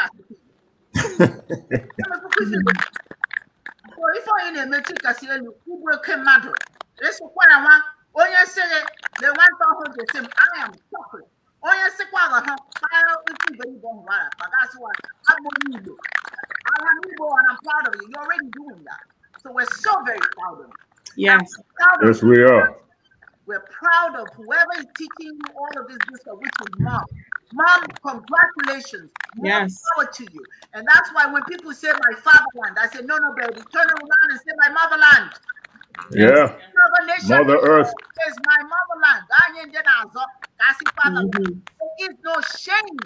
ife onye na emechi kasị elu ugwu oke mmadụ ịsụkwara nwa onye sịrị the nwata ọhụrụ I am suffering onye sịkwara ha kpara ofe iberibe nwara kpagasịwa agbụrụ igbo I'm proud of you. You're already doing that. So we're so very proud of you. Yes. Proud yes, we are. We're proud of whoever is teaching you all of this stuff, which is mom. Mom, congratulations. yes. power to you. And that's why when people say my fatherland, I say, no, no, baby, turn around and say my motherland. Yeah. Mother Earth is my motherland. I see, Father, mm-hmm. there is no shame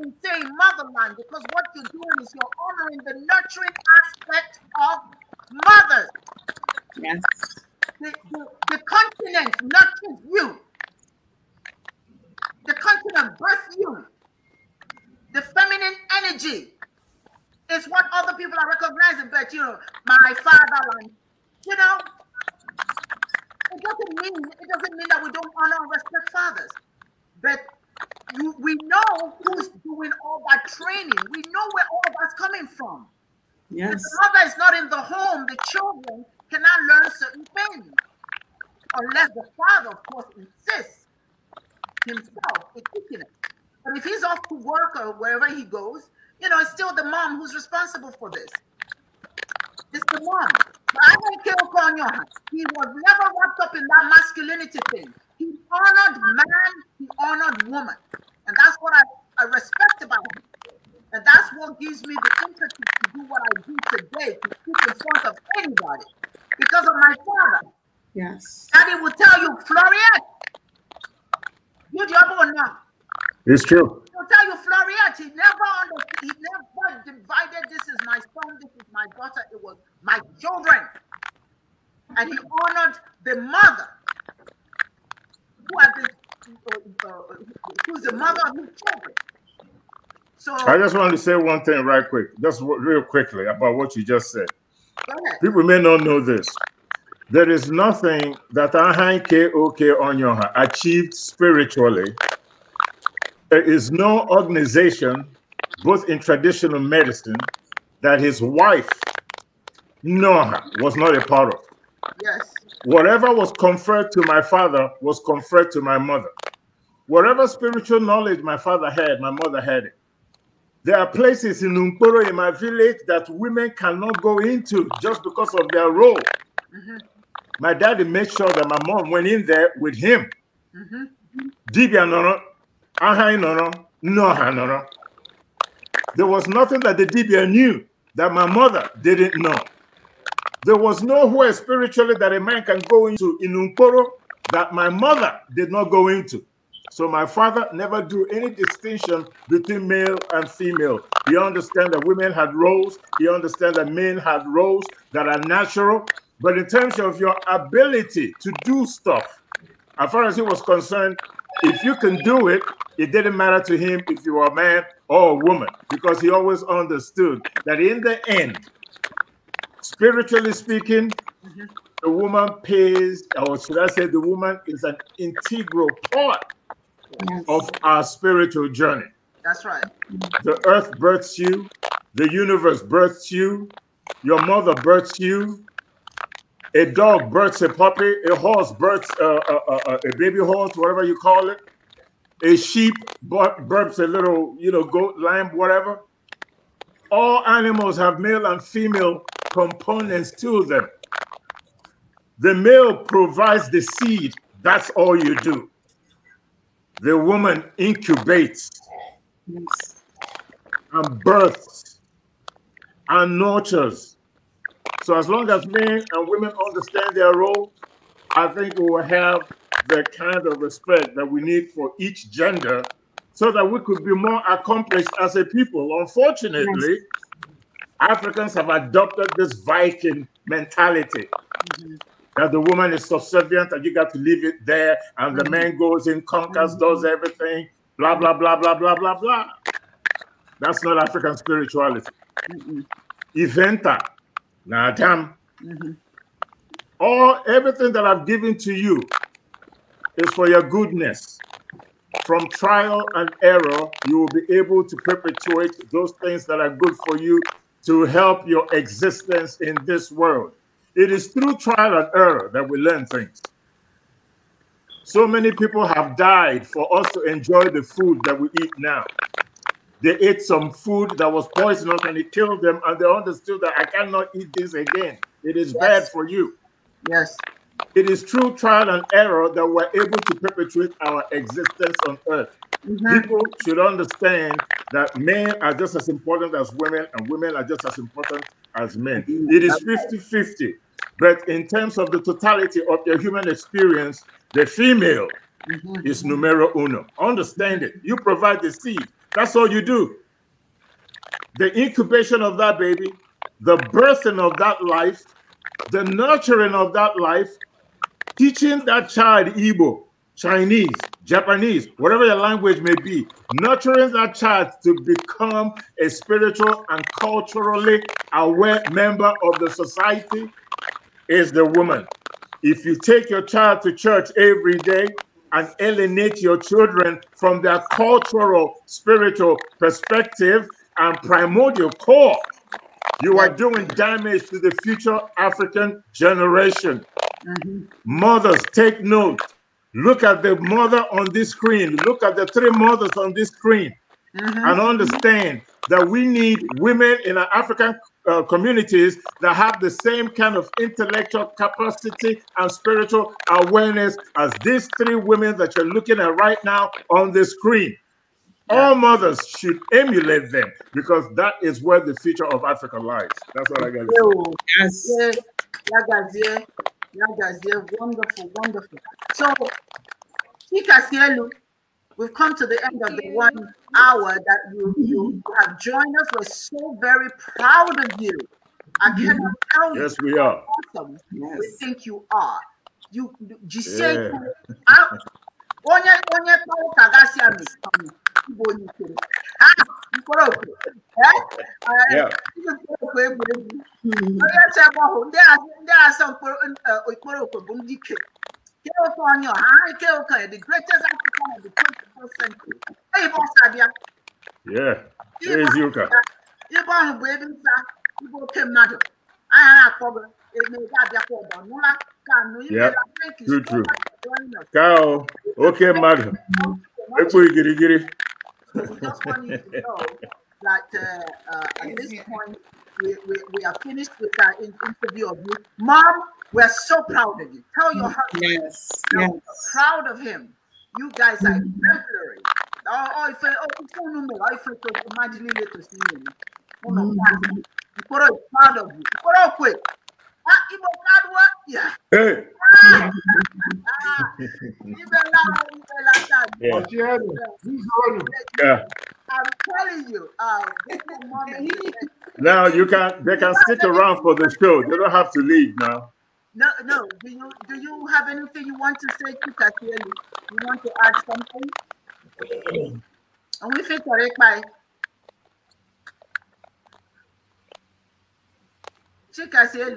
in saying motherland because what you're doing is you're honoring the nurturing aspect of mothers. Yes. The, the, the continent nurtures you. The continent births you. The feminine energy is what other people are recognizing, but you know, my fatherland. You know, it doesn't mean it doesn't mean that we don't honor and respect fathers. But you, we know who's doing all that training. We know where all that's coming from. Yes. If the mother is not in the home, the children cannot learn certain things. Unless the father, of course, insists himself in teaching it. But if he's off to work or wherever he goes, you know, it's still the mom who's responsible for this. It's the mom. But I don't care He was never wrapped up in that masculinity thing. He honored man, he honored woman. And that's what I, I respect about him. And that's what gives me the impetus to do what I do today, to speak in front of anybody, because of my father. Yes. Daddy will tell you, Floriette, you the other one now. It's true. He'll tell you, Floriette, he never understood, he never divided. This is my son, this is my daughter, it was my children. And he honored the mother who are uh, who's the mother of children. So I just want to say one thing right quick, just real quickly about what you just said. People may not know this. There is nothing that Ahan KOK Onyoha achieved spiritually. There is no organization, both in traditional medicine, that his wife, Noha, was not a part of. Yes. Whatever was conferred to my father was conferred to my mother. Whatever spiritual knowledge my father had, my mother had it. There are places in Lumpuro in my village that women cannot go into just because of their role. Mm -hmm. My daddy made sure that my mom went in there with him. Mm-hmm. Dibia noro, ahai noro, noha noro. There was nothing that the Dibia knew that my mother didn't know. There was nowhere spiritually that a man can go into in Umporo that my mother did not go into. So my father never drew any distinction between male and female. He understood that women had roles. He understood that men had roles that are natural. But in terms of your ability to do stuff, as far as he was concerned, if you can do it, it didn't matter to him if you were a man or a woman, because he always understood that in the end, Spiritually speaking, mm -hmm. the woman pays, or should I say, the woman is an integral part yes. of our spiritual journey. That's right. The earth births you, the universe births you, your mother births you, a dog births a puppy, a horse births uh, uh, uh, uh a baby horse, whatever you call it, a sheep births a little, you know, goat, lamb, whatever. All animals have male and female components to them. The male provides the seed, that's all you do. The woman incubates and births and nurtures. So as long as men and women understand their role, I think we will have the kind of respect that we need for each gender so that we could be more accomplished as a people. Unfortunately, yes Africans have adopted this Viking mentality mm-hmm. that the woman is subservient and you got to leave it there, and mm-hmm. the man goes in, conquers, does mm-hmm. everything, blah, blah, blah, blah, blah, blah, blah. That's not African spirituality. Mm-mm. Eventa, Nadam, mm mm-hmm. all everything that I've given to you is for your goodness. From trial and error, you will be able to perpetuate those things that are good for you to help your existence in this world. It is through trial and error that we learn things. So many people have died for us to enjoy the food that we eat now. They ate some food that was poisonous and it killed them, and they understood that I cannot eat this again. It is yes. bad for you. Yes. It is through trial and error that we're able to perpetuate our existence on earth. Mm-hmm. People should understand that men are just as important as women and women are just as important as men. It is 50 50. But in terms of the totality of your human experience, the female mm-hmm. is numero uno. Understand it. You provide the seed. That's all you do. The incubation of that baby, the birthing of that life, the nurturing of that life, teaching that child Igbo, Chinese, Japanese, whatever your language may be, nurturing that child to become a spiritual and culturally aware member of the society is the woman. If you take your child to church every day and alienate your children from their cultural, spiritual perspective and primordial core, you are doing damage to the future African generation. Mm -hmm. Mothers, take note Look at the mother on this screen. Look at the three mothers on this screen mm -hmm. and understand that we need women in our African uh, communities that have the same kind of intellectual capacity and spiritual awareness as these three women that you're looking at right now on the screen. All mothers should emulate them because that is where the future of Africa lies. That's what I got to say. Yes. yes. Yagazie, wonderful, wonderful. So, Chika Sielu, we've come to the end of the one hour that you, you have joined us. We're so very proud of you. I cannot tell you. yes, we are. awesome yes. we think you are. You, you Gisele, yeah. Ah, I, Eh? Eh, ndị asọ ikporokwe eh, bụ ndị ike California, high California, the greatest African of the 21st century. Hey, boss, Abia. Yeah, ụka Yuka. Ibo bụ ebe nta ibe oke mmadụ anya na-akpọ gị nụla ka nụ oke mmadụ ekpo igirigiri we just want you to know that uh, uh, at this point, we, we, we, are finished with our interview of you. Mom, we're so proud of you. Tell your husband. Yes. yes. Proud of him. You guys are mm-hmm. exemplary. Oh, oh, if I, oh, no, I forgot imagining it to see him. Oh, mm-hmm. proud of you. quick. Ah, hey. Ah, ah, I'm telling you, uh, now you can they can stick around for the show. They don't have to leave now. No, no. Do you do you have anything you want to say, to Kielu? You want to add something? And we think correct by Chika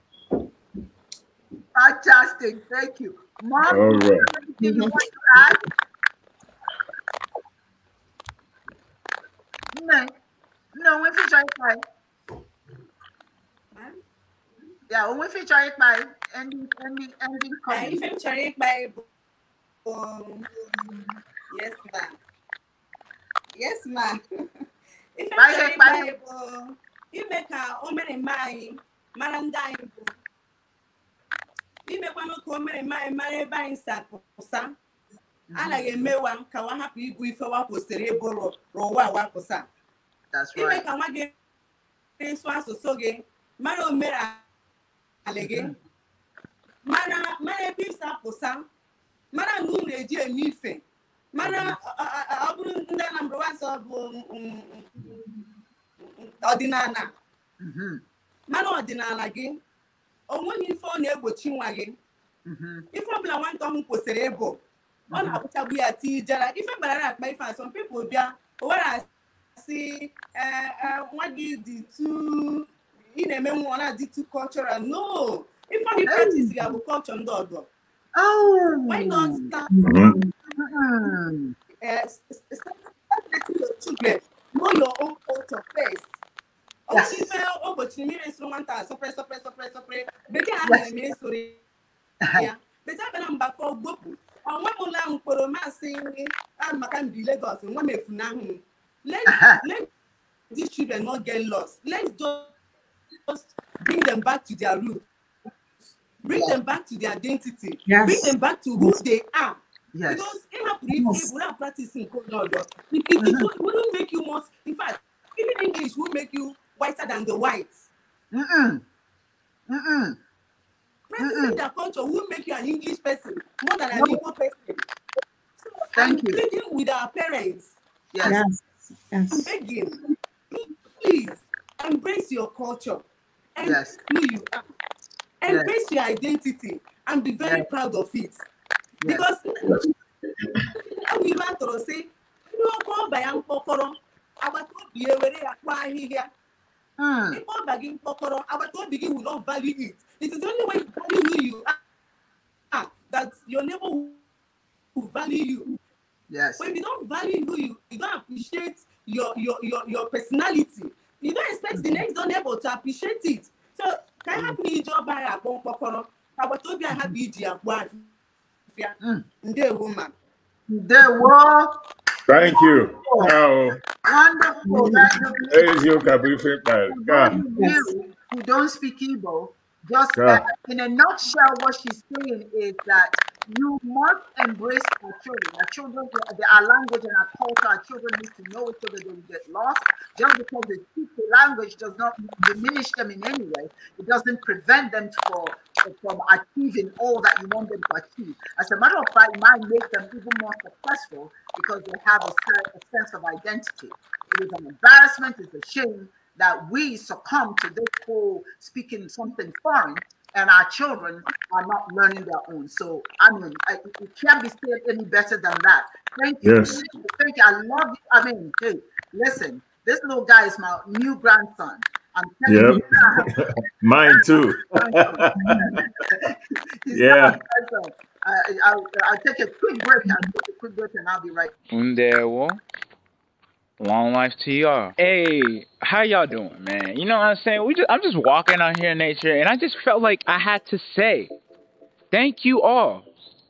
Fantastic. Thank you. Mom, All right. anything you want to add? No, no, we feature it by. Yeah, we feature it by ending, ending, ending. I feature it by. yes, ma'am. Yes, ma'am. Ife feature it by. Imeka, omere mai, marandai. imekwanụ ka o mere mmanya mara ebe anyị si pụsa mhm. anaghị emewa ka nwa hapụ ife wakwụsịrị kwesịrị ịbụ ụwa wapụsa ime ka nwa gị na asụsụ gị mara omenala gị mhm. mara ebe ịsa pụsa mara na eji eme ife mara mhm. ọ bụrụ ndị Anambra ọ bụ um, um, um, ọdịnala mara ọdịnala gị onweghị ife ọ na-egbochi nwa gị mm-hmm. ife ọbụla nwata ọhụụ kwụsịrị ịbụ ọ mm-hmm. na-abụchagbu ya ti jara ife gbara akpa ife asọm pipụl bịa owere asị e, e, nwa gị dị tu ị na-eme nwa ọ na-adị tu cultural no ife ọ dị mm-hmm. pratis ga-abụ culture ndị ọdọ oh! why not start eh, start letting your children know your own culture first Ah, Let these children not get lost let's just bring them back to their roots bring them back to their identity yes. bring them back to who they are yes. because if yes. without practicing code it, it, it, it wouldn't make you more in fact even English would make you whiter than the whites. Mm-mm. Mm-mm. Racism their culture will make you an English person more than an Igbo person. So Thank I'm you. pleading with our parents. Yes. yes. I'm begging. Please embrace your culture. Embrace yes. who you are. Embrace yes. your identity and be very yes. proud of it. Yes. Because we want to say, you are called by Uncle Koro. I was told you were a Hmm. Before begging Kokoro, our own begin will not value it. It is the only way you value who you are that your neighbor will value you. Yes. When you don't value who you, you don't appreciate your your your, your personality. You don't expect mm the mm-hmm. next door neighbor to appreciate it. So can mm-hmm. help me job by a bon Kokoro. Our to be a happy dear one. woman. ma. what? Thank you. Wonderful. Wonderful. Wonderful. There is your God. Who don't speak Igbo just that, in a nutshell, what she's saying is that you must embrace our children. Our children, our language and our culture, our children need to know it so that they will get lost. Just because they speak the language does not diminish them in any way. It doesn't prevent them for, from achieving all that you want them to achieve. As a matter of fact, it might make them even more successful because they have a, a sense of identity. It is an embarrassment, it's a shame, that we succumb to this whole speaking something foreign and our children are not learning their own. So I mean, I, it can't be said any better than that. Thank you. Yes. Thank you. I love you. I mean, hey, listen, this little guy is my new grandson. I'm telling yep. you Mine too. yeah. I, I, I'll take a quick break. I'll take a quick break and I'll be right. There, Long life to y'all. Hey, how y'all doing, man? You know what I'm saying? We just I'm just walking out here in nature and I just felt like I had to say thank you all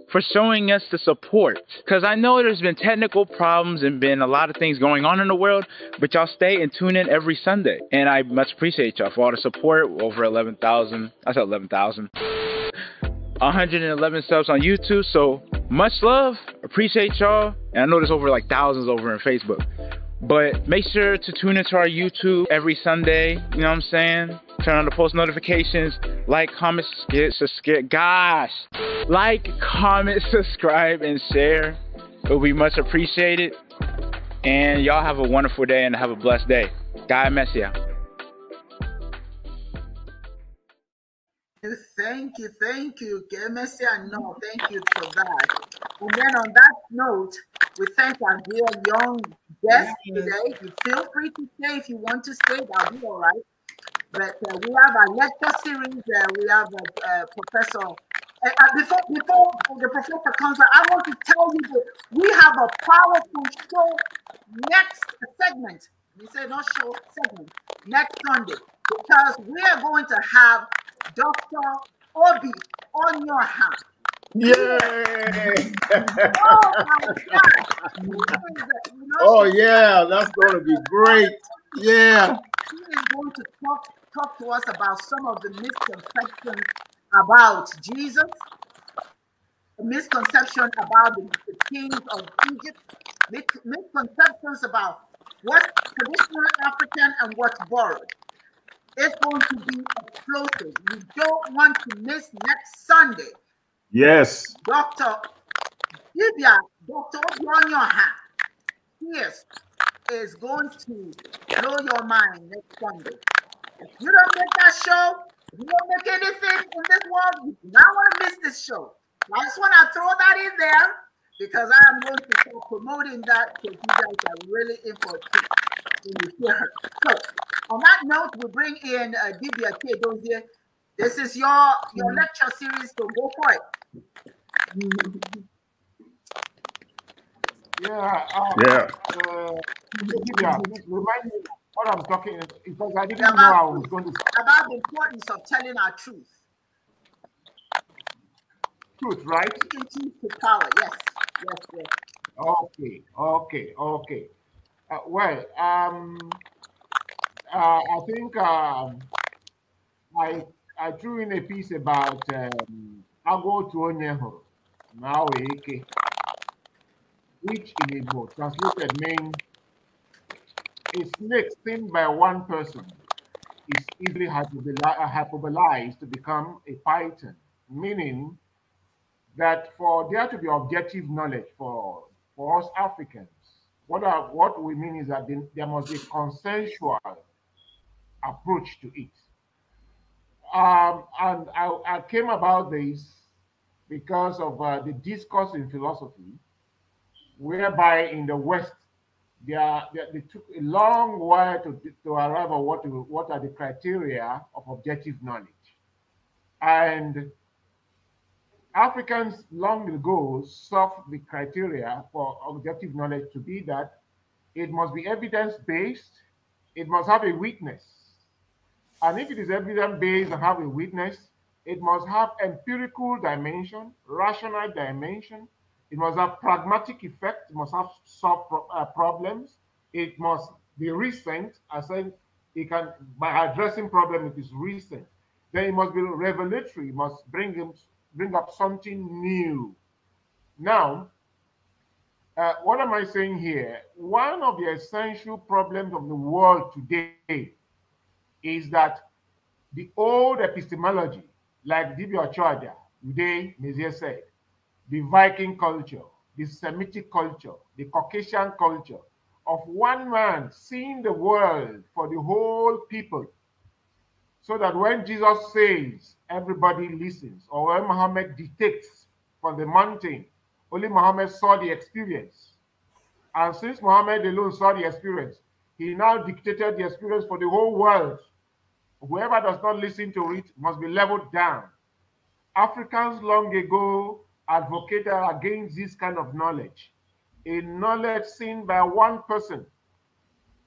for showing us the support. Cause I know there's been technical problems and been a lot of things going on in the world, but y'all stay and tune in every Sunday. And I much appreciate y'all for all the support. Over 11,000. I said 11,000. 111 subs on YouTube. So much love. Appreciate y'all. And I know there's over like thousands over in Facebook. But make sure to tune into our YouTube every Sunday. You know what I'm saying? Turn on the post notifications. Like, comment, subscribe. Gosh. Like, comment, subscribe, and share. It would be much appreciated. And y'all have a wonderful day and have a blessed day. God bless you. Thank you, thank you, Messi and No, thank you for that. And then on that note, we thank our dear young guest yes. today. You feel free to stay if you want to stay, that'll be all right. But uh, we have a lecture series. Uh, we have a uh, uh, professor. Uh, uh, before before the professor comes, I want to tell you that we have a powerful show next segment. You say not show segment next Sunday because we are going to have Dr. Obi on your hand. Yay! oh my oh yeah, that's going to be great. Yeah. He is going to talk talk to us about some of the misconceptions about Jesus, misconception about the, the kings of Egypt, misconceptions about what's traditional African and what's borrowed. It's going to be explosive. You don't want to miss next Sunday. Yes. Dr. Vivian, Dr. hand. yes, is going to blow your mind next Sunday. If you don't make that show, you don't make anything in this world, you do not want to miss this show. I just want to throw that in there because I am going to be promoting that because you guys are really important. So on that note, we bring in uh, Dibia Kedozie. This is your your mm-hmm. lecture series, so go for it. Yeah. Um, yeah. Uh, uh Dibia, remind me what I'm talking because I didn't about, know I was going to about the importance of telling our truth. Truth, right? Truth to power. Yes. Yes. Yes. Okay. Okay. Okay. Uh, well, um, uh, I think um, I I threw in a piece about um, Ago Tuonyeho, Naoeke, which in Igbo translated means a snake seen by one person is easily hyperbolized uh, to become a python, meaning that for there to be objective knowledge for, for us Africans, what, are, what we mean is that there must be consensual approach to it. Um, and I, I, came about this because of uh, the discourse in philosophy, whereby in the West, they, are, they, they took a long while to, to arrive at what, what are the criteria of objective knowledge. And Africans long ago sought the criteria for objective knowledge to be that it must be evidence based, it must have a witness, and if it is evidence-based and have a witness, it must have empirical dimension, rational dimension. It must have pragmatic effect. It must have solve pro uh, problems. It must be recent. I said it can by addressing problem it is recent. Then it must be revelatory. It must bring him bring up something new. Now, uh, what am I saying here? One of the essential problems of the world today is that the old epistemology, like Divya Ochoaja, Uday Mezier said, the Viking culture, the Semitic culture, the Caucasian culture of one man seeing the world for the whole people. So that when Jesus says, everybody listens, or when Muhammad dictates from the mountain, only Muhammad saw the experience. And since Muhammad alone saw the experience, he now dictated the experience for the whole world. Whoever does not listen to it must be leveled down. Africans long ago advocated against this kind of knowledge, a knowledge seen by one person.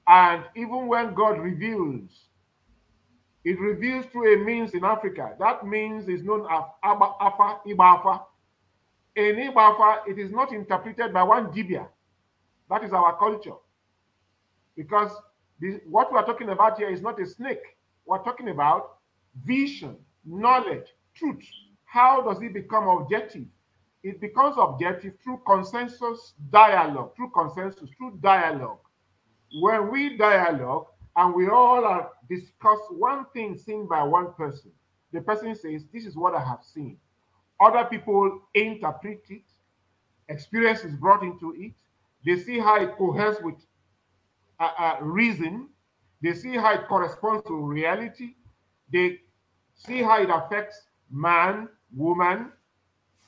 And even when God reveals, it reveals through a means in Africa. That means is known as Abba, Ibafa. In Ibafa, it is not interpreted by one Dibia. That is our culture. Because this, what we are talking about here is not a snake. We're talking about vision, knowledge, truth. How does it become objective? It becomes objective through consensus dialogue, through consensus, through dialogue. When we dialogue and we all are discuss one thing seen by one person, the person says, This is what I have seen. Other people interpret it, experience is brought into it, they see how it coheres with uh, uh, reason, they see how it corresponds to reality. They see how it affects man, woman,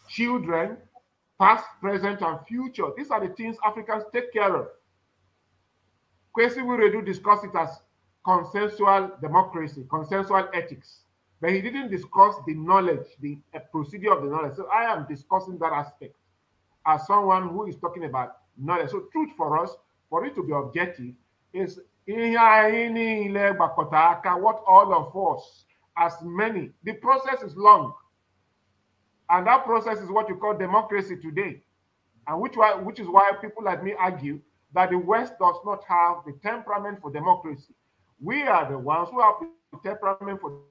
children, past, present, and future. These are the things Africans take care of. Kwesi Wiredu discussed it as consensual democracy, consensual ethics, but he didn't discuss the knowledge, the uh, procedure of the knowledge. So I am discussing that aspect as someone who is talking about knowledge. So truth for us, for it to be objective, is ihe anyị niile gbakọta aka what all of us as many the process is long and that process is what you call democracy today and which why, which is why people like me argue that the west does not have the temperament for democracy we are the ones who have the temperament for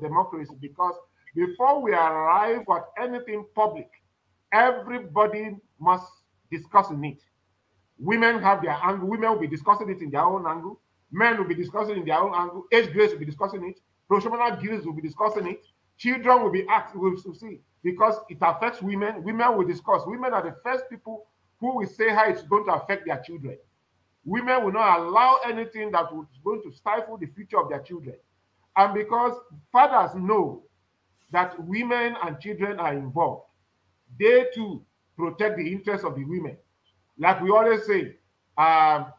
democracy because before we arrive at anything public everybody must discuss in it Women have their angle. Women will be discussing it in their own angle. Men will be discussing in their own angle. Age grades will be discussing it. Professional guilds will be discussing it. Children will be asked, will see, because it affects women. Women will discuss. Women are the first people who will say how it's going to affect their children. Women will not allow anything that is going to stifle the future of their children. And because fathers know that women and children are involved, they too protect the interests of the women. Like we always say, um,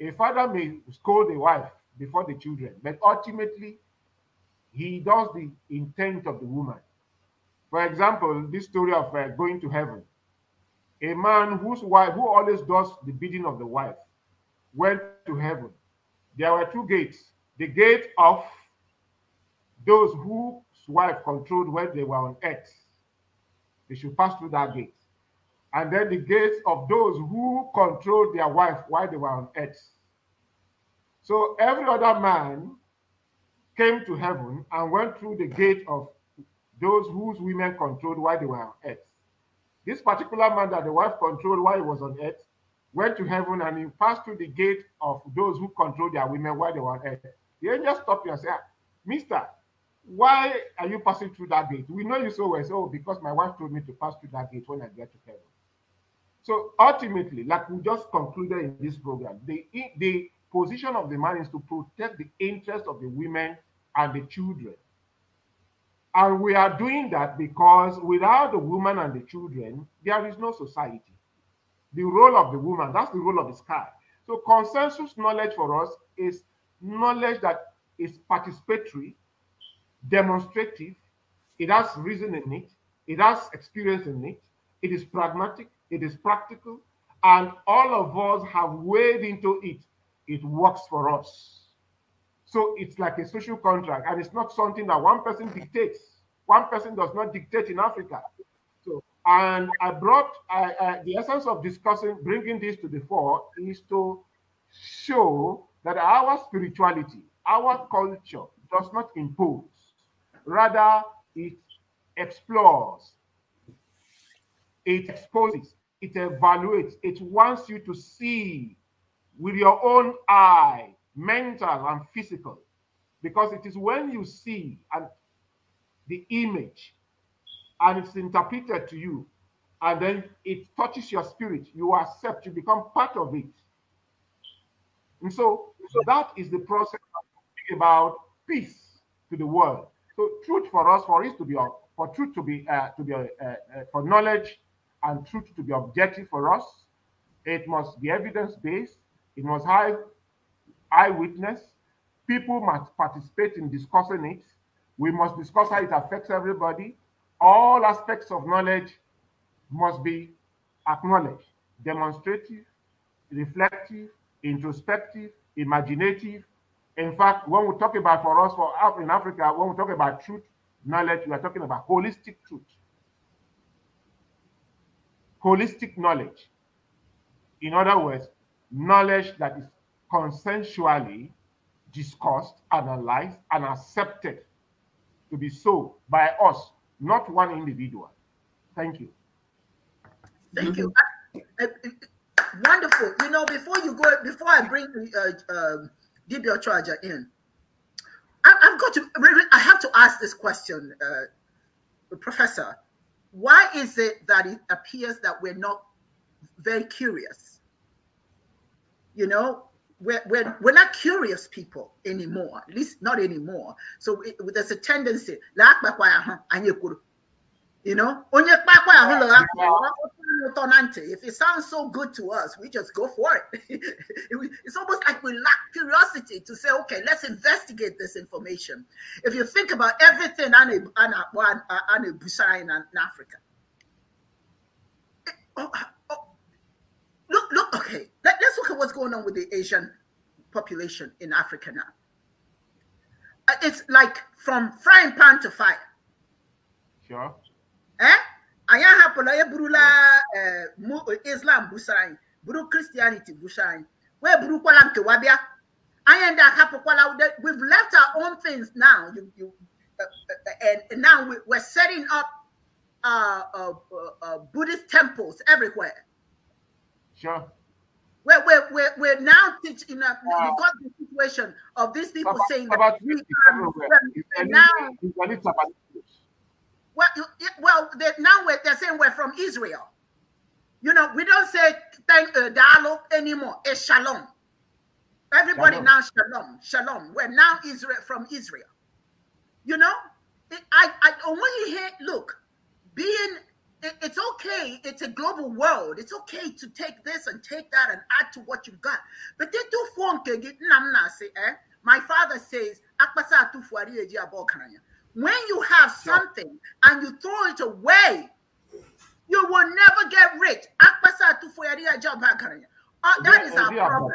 a father may scold a wife before the children, but ultimately, he does the intent of the woman. For example, this story of uh, going to heaven. A man whose wife, who always does the bidding of the wife, went to heaven. There were two gates the gate of those whose wife controlled when they were on earth. They should pass through that gate and then the gates of those who controlled their wife while they were on earth. So every other man came to heaven and went through the gate of those whose women controlled while they were on earth. This particular man that the wife controlled while he was on earth went to heaven and he passed through the gate of those who controlled their women while they were on earth. The angel stopped you and said, ah, Mister, why are you passing through that gate? We know you so well. So, oh, because my wife told me to pass through that gate when I get to heaven. So ultimately, like we just concluded in this program, the, the position of the man is to protect the interests of the women and the children. And we are doing that because without the woman and the children, there is no society. The role of the woman, that's the role of the sky. So consensus knowledge for us is knowledge that is participatory, demonstrative, it has reason in it, it has experience in it, it is pragmatic, it is practical, and all of us have waded into it. It works for us. So it's like a social contract, and it's not something that one person dictates. One person does not dictate in Africa. So, and I brought I, I, the essence of discussing, bringing this to the fore, is to show that our spirituality, our culture, does not impose. Rather, it explores, it exposes, it evaluates, it wants you to see with your own eye, mental and physical, because it is when you see and the image and it's interpreted to you, and then it touches your spirit, you accept, you become part of it. And so, so that is the process about peace to the world. So truth for us, for it to be, for truth to be, uh, to be, uh, uh, for knowledge and truth to be objective for us. It must be evidence-based. It must have eyewitness. People must participate in discussing it. We must discuss how it affects everybody. All aspects of knowledge must be acknowledged, demonstrative, reflective, introspective, imaginative. In fact, when we talk about for us for in Africa, when we talk about truth, knowledge, we are talking about holistic truth holistic knowledge. In other words, knowledge that is consensually discussed, analyzed, and accepted to be so by us, not one individual. Thank you. Thank you. Uh, uh, uh wonderful. You know, before you go, before I bring uh, uh, DBL Charger in, I, have got to, I have to ask this question, uh, Professor. Why is it that it appears that we're not very curious? You know, we're, we're, we're not curious people anymore, at least not anymore. So it, there's a tendency, you know, tonante. If it sounds so good to us, we just go for it. it's almost like we lack curiosity to say, okay, let's investigate this information. If you think about everything on a, on a, on a, in, Africa, oh, oh, oh. look, look, okay, let's look at what's going on with the Asian population in Africa now. Uh, it's like from frying pan to fire. Sure. Eh? anyị ahapụla eburula eh, islam busara anyị buru kristianity busa anyị wee burukwala nkewa bịa anyị ndị ahapụkwala we've left our own things now you, you, uh, and now we, we're setting up uh, uh, uh, uh buddhist temples everywhere sure we're, we're, we're, we're now teaching uh, wow. because the situation of these people about, saying about that we are, we're, we're now, well, well, they, now they're saying we're from Israel. You know, we don't say thank uh, dialogue anymore. It's shalom. Everybody shalom. now shalom, shalom. We're now Israel from Israel. You know, it, I, I hear, look, being it, it's okay. It's a global world. It's okay to take this and take that and add to what you've got. But they do phone eh? My father says, when you have something and you throw it away, you will never get rich. Uh, that is our problem.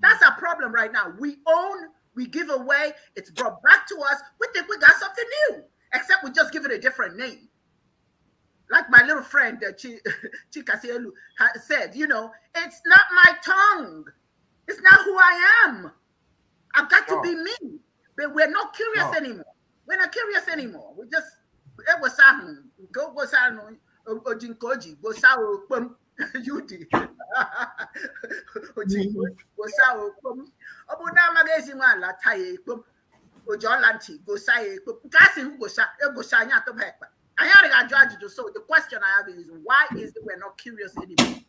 That's our problem right now. We own, we give away, it's brought back to us. We think we got something new, except we just give it a different name. Like my little friend uh, Chika Sielu said, you know, it's not my tongue. It's not who I am. I've got to be me. But we're not curious anymore we're not curious anymore. We just it eh, was go go ojinkoji go sao pum yudi ojinkoji go sao pum obu na magazine wa la taye pum ojolanti go saye pum kasi go sa go sa nya to hekpa anya ga judge do so the question i have is why is it we're not curious anymore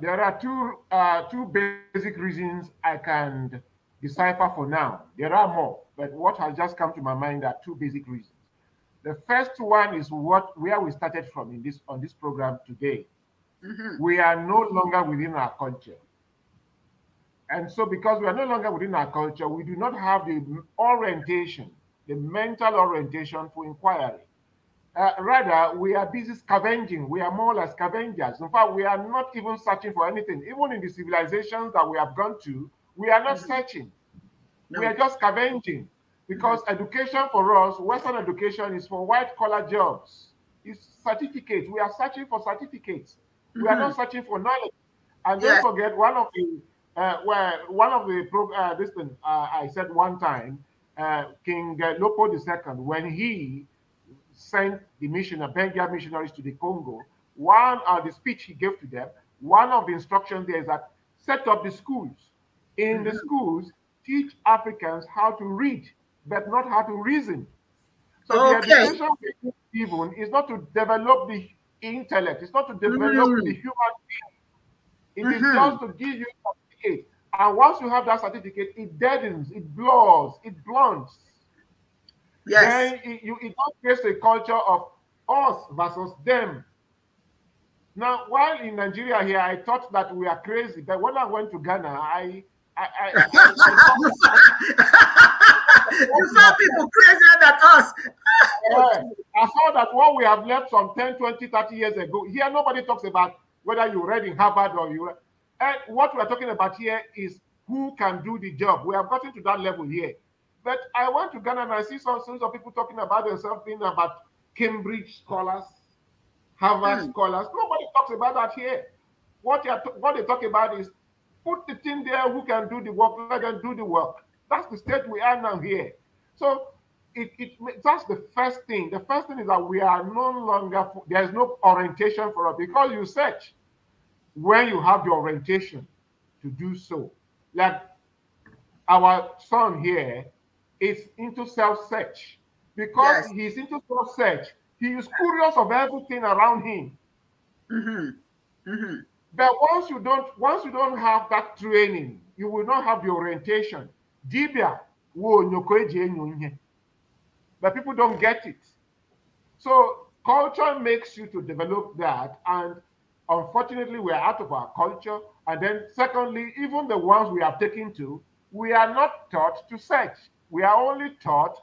there are two uh, two basic reasons i can decipher for now. There are more, but what has just come to my mind are two basic reasons. The first one is what where we started from in this on this program today. Mm -hmm. We are no longer within our culture. And so because we are no longer within our culture, we do not have the orientation, the mental orientation for inquiry. Uh, rather, we are busy scavenging. We are more like scavengers. In fact, we are not even searching for anything. Even in the civilizations that we have gone to, we are not mm-hmm. searching. No. We are just scavenging because mm-hmm. education for us, Western education is for white collar jobs. It's certificates. We are searching for certificates. Mm -hmm. We are not mm-hmm. searching for knowledge. And yeah. don't forget one of the uh, well, one of the uh, this thing uh, I said one time, uh, King uh, Lopo II, when he sent the missioner Benga missionaries to the Congo, one of the speech he gave to them, one of the instructions there is that set up the schools in the mm-hmm. schools teach Africans how to read, but not how to reason. So okay. the education given is not to develop the intellect, it's not to develop mm -hmm. the mm-hmm. human being. It mm -hmm. is mm-hmm. just to give you a certificate. And once you have that certificate, it deadens, it blurs, it blunts. Yes. Then it, you, it creates a culture of us versus them. Now, while in Nigeria here, I thought that we are crazy. But when I went to Ghana, I I, I, I, you people crazier than us. I saw that what we have left from 10, 20, 30 years ago, here nobody talks about whether you read in Harvard or you And what we're talking about here is who can do the job. We have gotten to that level here. But I went to Ghana and I see some sons of people talking about themselves being about Cambridge scholars, Harvard mm. scholars. Nobody talks about that here. What, what they talk about is Put the team there who can do the work, let them do the work. That's the state we are now here. So it, it that's the first thing. The first thing is that we are no longer there is no orientation for us because you search when you have the orientation to do so. Like our son here is into self-search. Because yes. he's into self-search, he is curious of everything around him. Mm -hmm. Mm -hmm. But once you don't, once you don't have that training, you will not have the orientation. Dibia, but people don't get it. So culture makes you to develop that, and unfortunately, we are out of our culture. And then, secondly, even the ones we are taken to, we are not taught to search. We are only taught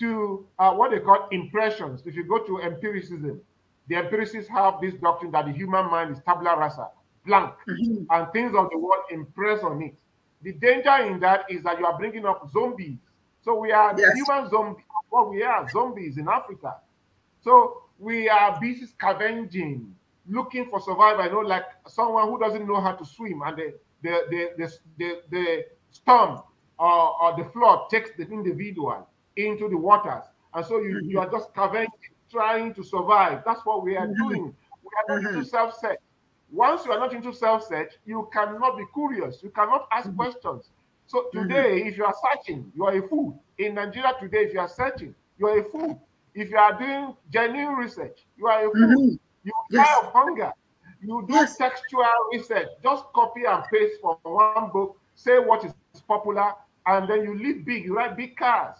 to uh, what they call impressions. If you go to empiricism, the empiricists have this doctrine that the human mind is tabula rasa blank, mm-hmm. and things of the world impress on it. The danger in that is that you are bringing up zombies. So we are yes. human zombies. What well, we are zombies in Africa. So we are busy scavenging, looking for survival. You know, like someone who doesn't know how to swim, and the the the the, the, the storm or, or, the flood takes the individual into the waters, and so you, mm-hmm. you are just scavenging, trying to survive. That's what we are mm-hmm. doing. We are not mm-hmm. self-set. Once you are not into self search, you cannot be curious. You cannot ask mm -hmm. questions. So mm-hmm. today, mm -hmm. if you are searching, you are a fool. In Nigeria today, if you are searching, you are a fool. If you are doing genuine research, you are a fool. Mm -hmm. You yes. die of hunger. You do yes. textual research. Just copy and paste from one book. Say what is popular, and then you live big. You write big cars.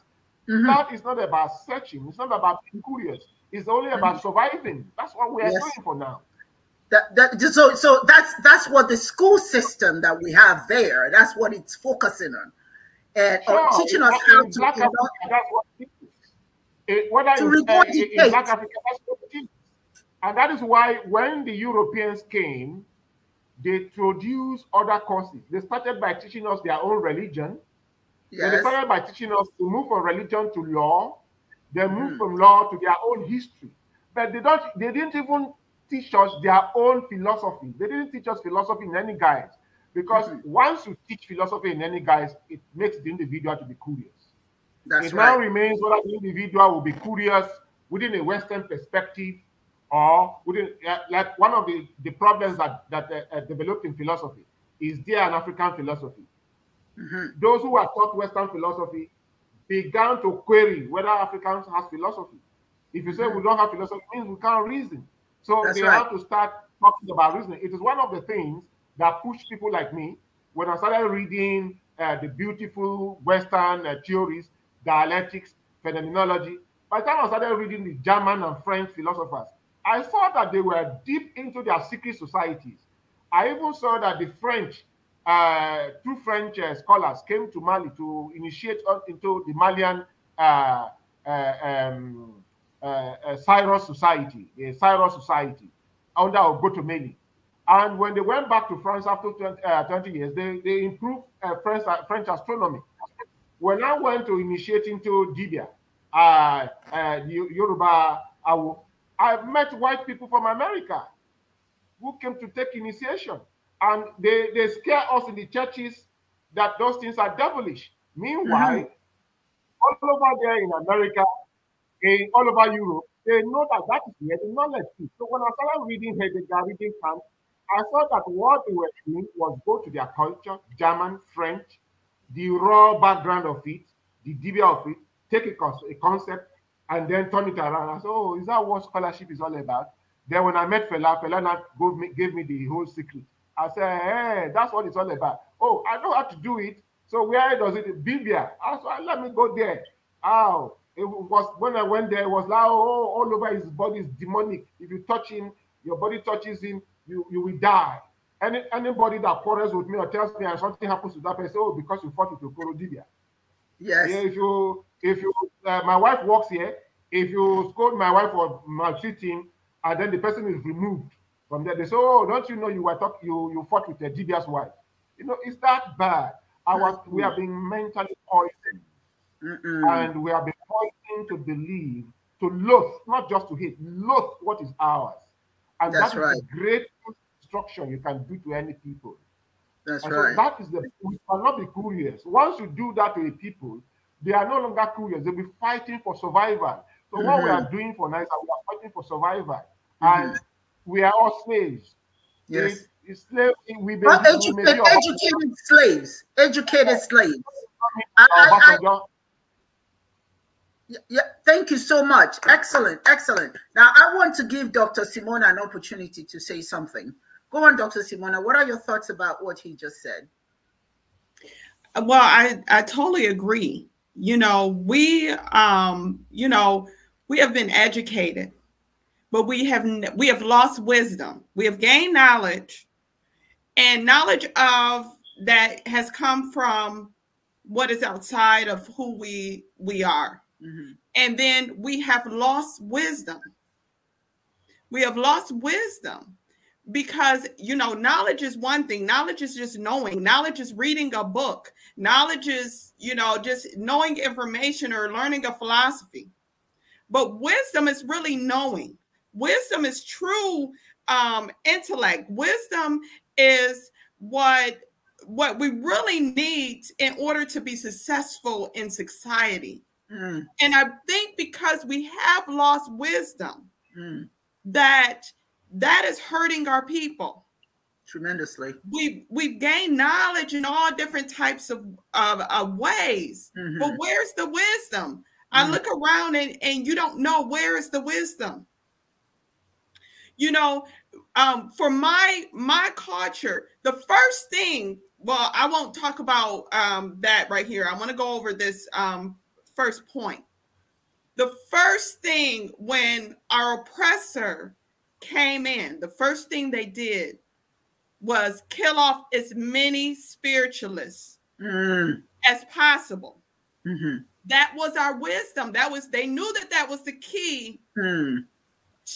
Mm-hmm. That is not about searching. It's not about being curious. It's only about mm-hmm. surviving. That's what we are yes. doing for now. That, so so that's that's what the school system that we have there. That's what it's focusing on, and uh, sure, teaching us how to. Black Africa, that's what It, to uh, Black that's what And that is why when the Europeans came, they introduced other courses. They started by teaching us their own religion. Yes. They started by teaching us to move from religion to law. They moved mm. from law to their own history. But they don't they didn't even teach us their own philosophy. They didn't teach us philosophy in any guise. Because mm -hmm. once you teach philosophy in any guise, it makes the individual to be curious. That's it right. now remains whether the individual will be curious within a Western perspective or within, like one of the, the problems that, that uh, uh developed in philosophy is there an African philosophy? Mm -hmm. Those who have taught Western philosophy began to query whether Africans has philosophy. If you say we mm-hmm. don't have philosophy, means we can't reason. So That's they right. have to start talking about reasoning. It is one of the things that pushed people like me when I started reading uh, the beautiful Western uh, theories, dialectics, phenomenology. By the time I started reading the German and French philosophers, I saw that they were deep into their secret societies. I even saw that the French, uh, two French uh, scholars came to Mali to initiate into the Malian uh, uh, um, uh, Cyrus Society, the Cyrus Society under Ogotomeni. And when they went back to France after 20, uh, 20 years, they, they improved uh, French, uh, French astronomy. When I went to initiate into Dibia, uh, uh, Yoruba, I, I met white people from America who came to take initiation. And they, they scare us in the churches that those things are devilish. Meanwhile, mm -hmm. all over there in America, in all over Europe, they know that that is where the knowledge is. So when I started reading Heidegger, reading Kant, I saw that what they were doing was go to their culture, German, French, the raw background of it, the debate of it, take a, a concept and then turn it around. I said, oh, is that what scholarship is all about? Then when I met Fela, Fela now gave me, gave me the whole secret. I said, hey, that's what it's all about. Oh, I know how to do it. So where does it? Bibia. I said, let me go there. Oh, It was when I went there, it was like oh, all over his body is demonic. If you touch him, your body touches him, you, you will die. Any anybody that quarrels with me or tells me something happens to that person, oh, because you fought with your Dibia. Yes. Yeah, if you if you uh, my wife works here, if you scold my wife for maltreating, and then the person is removed from there, they say, oh, don't you know you were talking, you you fought with a Dibia's wife. You know, it's that bad. was we have been mentally poisoned Mm-mm. And we have been pointing to believe, to loathe, not just to hate, loathe what is ours. And That's that is right. the greatest destruction you can do to any people. That's and right. So that is the we cannot be curious. Once you do that to a people, they are no longer curious. They'll be fighting for survival. So mm-hmm. what we are mm-hmm. doing for NISA, we are fighting for survival. Mm-hmm. And we are all slaves. Yes. It, we well, educated, educated slaves. Educated slaves. I, oh, I, I, yeah, thank you so much. Excellent, excellent. Now, I want to give Dr. Simona an opportunity to say something. Go on, Dr. Simona. What are your thoughts about what he just said? Well, I, I totally agree. You know, we, um, you know, we have been educated, but we have we have lost wisdom. We have gained knowledge, and knowledge of that has come from what is outside of who we we are Mm-hmm. And then we have lost wisdom. We have lost wisdom because, you know, knowledge is one thing. Knowledge is just knowing. Knowledge is reading a book. Knowledge is, you know, just knowing information or learning a philosophy. But wisdom is really knowing. Wisdom is true um, intellect. Wisdom is what what we really need in order to be successful in society. Mm. And I think because we have lost wisdom, mm. that that is hurting our people tremendously. We've we've gained knowledge in all different types of of, of ways, mm-hmm. but where's the wisdom? mm I look around and and you don't know where is the wisdom. You know, um, for my my culture, the first thing. Well, I won't talk about um, that right here. I want to go over this um, first point. The first thing when our oppressor came in, the first thing they did was kill off as many spiritualists mm. as possible. Mm-hmm. That was our wisdom. That was they knew that that was the key mm.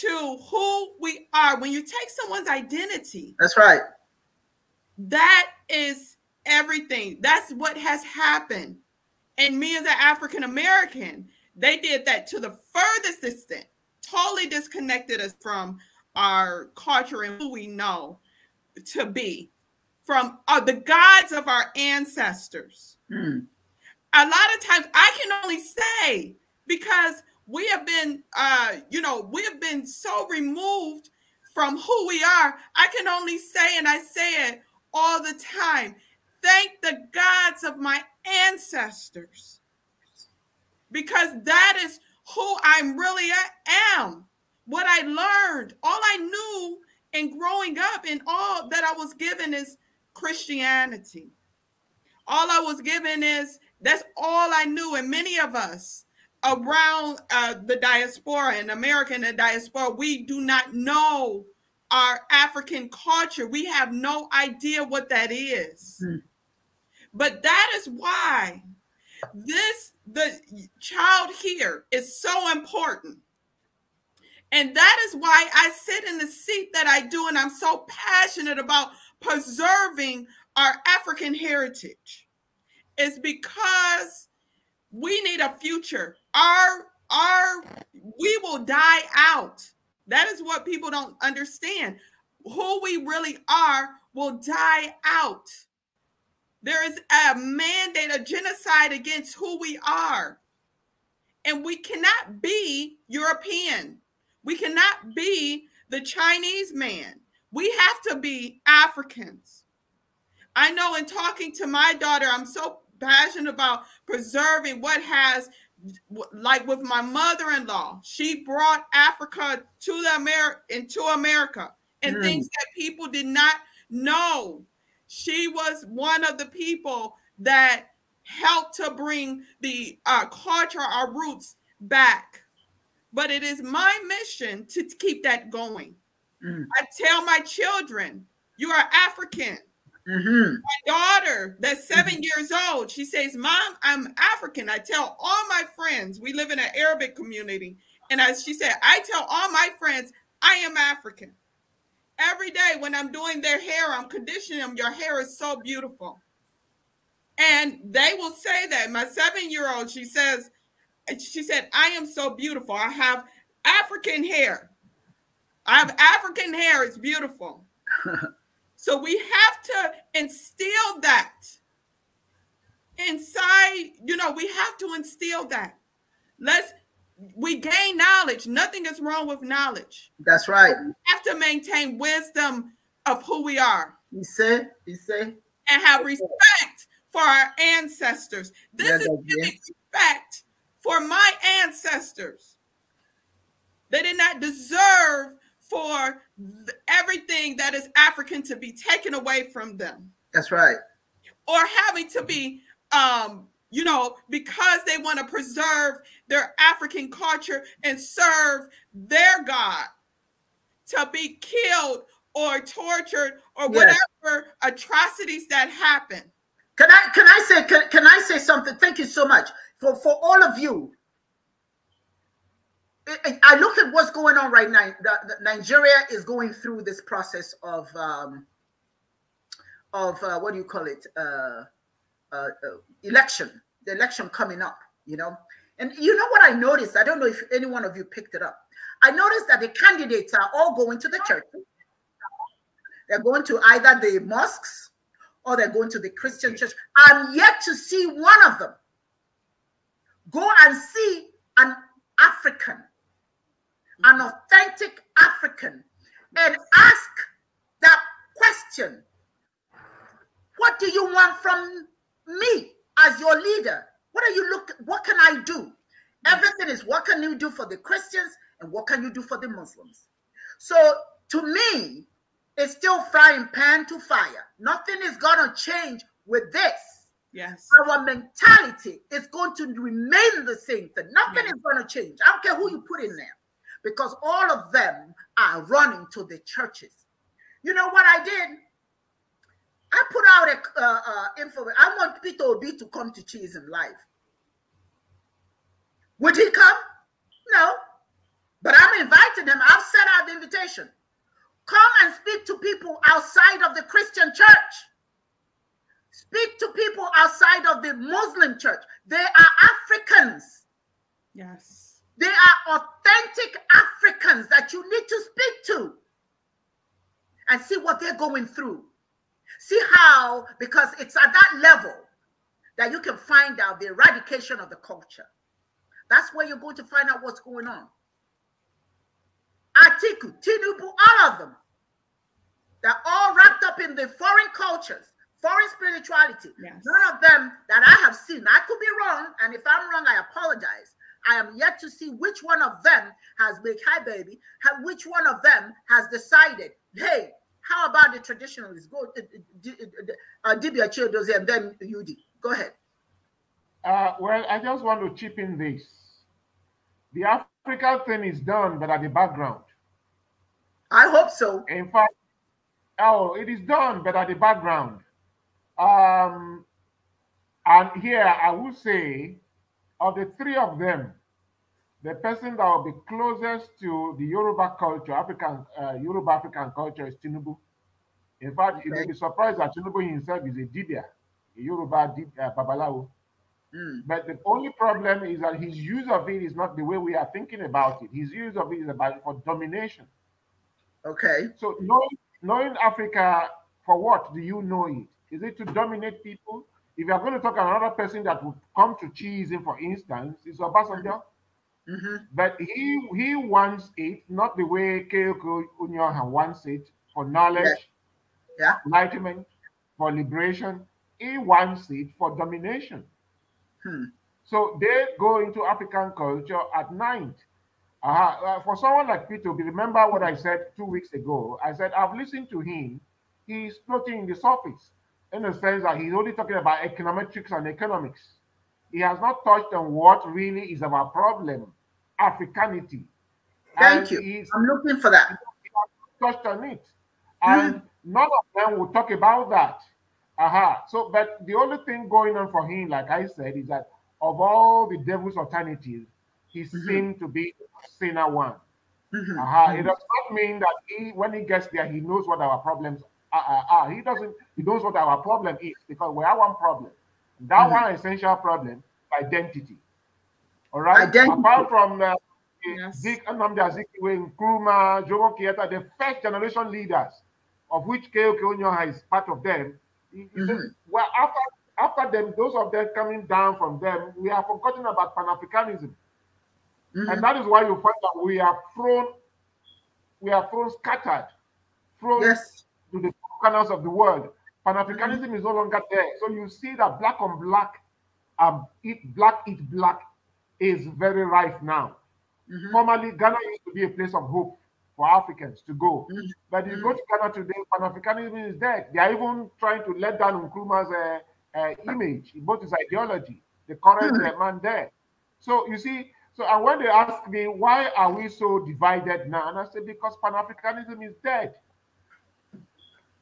to who we are. When you take someone's identity, that's right. That is everything. That's what has happened and me as an African American, they did that to the furthest extent, totally disconnected us from our culture and who we know to be, from uh, the gods of our ancestors. Mm. A lot of times I can only say because we have been, uh, you know, we have been so removed from who we are. I can only say, and I say it all the time thank the gods of my ancestors because that is who I really am. What I learned, all I knew in growing up, and all that I was given is Christianity. All I was given is that's all I knew. And many of us around uh, the diaspora and American and diaspora, we do not know our African culture. We have no idea what that is. Mm -hmm. But that is why this the child here is so important. And that is why I sit in the seat that I do, and I'm so passionate about preserving our African heritage. It's because we need a future. Our our we will die out. That is what people don't understand. Who we really are will die out. There is a mandate, a genocide against who we are. And we cannot be European. We cannot be the Chinese man. We have to be Africans. I know in talking to my daughter, I'm so passionate about preserving what has, like with my mother in law, she brought Africa to the America into America and mm. things that people did not know she was one of the people that helped to bring the uh, culture, our roots back. But it is my mission to keep that going. Mm. I tell my children, you are African. Mm -hmm. My daughter, that's 7 mm -hmm. years old, she says, Mom, I'm African. I tell all my friends, we live in an Arabic community. And as she said, I tell all my friends, I am African. Every day when I'm doing their hair, I'm conditioning them. Your hair is so beautiful. And they will say that. My seven year old, she says, she said, I am so beautiful. I have African hair. I have African hair. It's beautiful. so we have to instill that inside. You know, we have to instill that. Let's we gain knowledge. Nothing is wrong with knowledge. That's right. we have to maintain wisdom of who we are. You say, you say. And have respect for our ancestors. This yeah, is giving yeah. respect for my ancestors. They did not deserve for everything that is African to be taken away from them. That's right. Or having to be um, you know, because they want to preserve their African culture and serve their God to be killed or tortured or yes. whatever atrocities that happen. Can I can I say can, can I say something? Thank you so much for for all of you. I, I look at what's going on right now. The, the Nigeria is going through this process of um, of uh, what do you call it? Uh, uh, uh, election, the election coming up, you know. And you know what I noticed? I don't know if any one of you picked it up. I noticed that the candidates are all going to the church. They're going to either the mosques or they're going to the Christian church. I'm yet to see one of them go and see an African, an mm-hmm. authentic African, and ask that question What do you want from me as your leader what are you look what can i do mm. everything is what can you do for the christians and what can you do for the muslims so to me it's still frying pan to fire nothing is going to change with this yes our mentality is going to remain the same thing nothing yes. is going to change i don't care who you put in there because all of them are running to the churches you know what i did I put out a uh, uh, info. I want Peter Obi to come to Cheese in Life. Would he come? No. But I'm inviting him. I've sent out the invitation. Come and speak to people outside of the Christian church. Speak to people outside of the Muslim church. They are Africans. Yes. They are authentic Africans that you need to speak to and see what they're going through. See how, because it's at that level that you can find out the eradication of the culture. That's where you're going to find out what's going on. Atiku, Tinubu, all of them. They're all wrapped up in the foreign cultures, foreign spirituality. Yes. None of them that I have seen, I could be wrong, and if I'm wrong, I apologize. I am yet to see which one of them has big hi baby, which one of them has decided, hey, how about the traditionalists? Go, uh, uh Dibia Chiodozie and then UD. Go ahead. Uh, well, I just want to chip in this. The Africa thing is done, but at the background. I hope so. In fact, oh, it is done, but at the background. Um, and here I will say, of the three of them, the person that will be closest to the Yoruba culture, African uh, Yoruba African culture, is Tinubu. In fact, you may be surprised that Tinubu himself is a dibia, a Yoruba dib, uh, babalawo. Mm. But the only problem is that his use of it is not the way we are thinking about it. His use of it is about for domination. Okay. So knowing, knowing Africa for what do you know it? Is it to dominate people? If you are going to talk another person that would come to cheese, for instance, is Obasanjo. Mm -hmm. Mm -hmm. But he he wants it not the way Keiko Unyoha wants it for knowledge, yeah. enlightenment, for liberation. He wants it for domination. Hmm. So they go into African culture at night. uh, for someone like Peter, remember what I said two weeks ago. I said I've listened to him. He's floating in the surface in the sense that he's only talking about econometrics and economics. He has not touched on what really is our problem Africanity. Thank and you. I'm looking for that. Touched on it. And mm. none of them will talk about that. Aha. So, but the only thing going on for him, like I said, is that of all the devil's alternatives, he mm -hmm. seemed to be sinner one. Mm -hmm. It mm-hmm. does not mean that he, when he gets there, he knows what our problems are. He doesn't, he knows what our problem is because we have one problem. That -hmm. one essential problem identity. All right. Identity. Apart from uh, yes. Zik Anamdi Azikiwe, Nkrumah, Jomo Kenyatta, the first generation leaders, of which KOK Onyoha is part of them. Mm -hmm. Well, after after them, those of them coming down from them, we have forgotten about Pan Africanism. Mm -hmm. And that is why you find that we are thrown, we are thrown scattered, thrown yes. to the corners of the world. Pan Africanism mm -hmm. is no longer there. So you see that black on black, um, eat black, eat black is very rife now. Mm-hmm. Formerly, Ghana used to be a place of hope for Africans to go. Mm-hmm. But you go to Ghana today, Pan Africanism is dead. They are even trying to let down Nkrumah's uh, uh, image, both his ideology, the current mm-hmm. Uh, man there. So you see, so and when they ask me why are we so divided now, and I say because Pan Africanism is dead.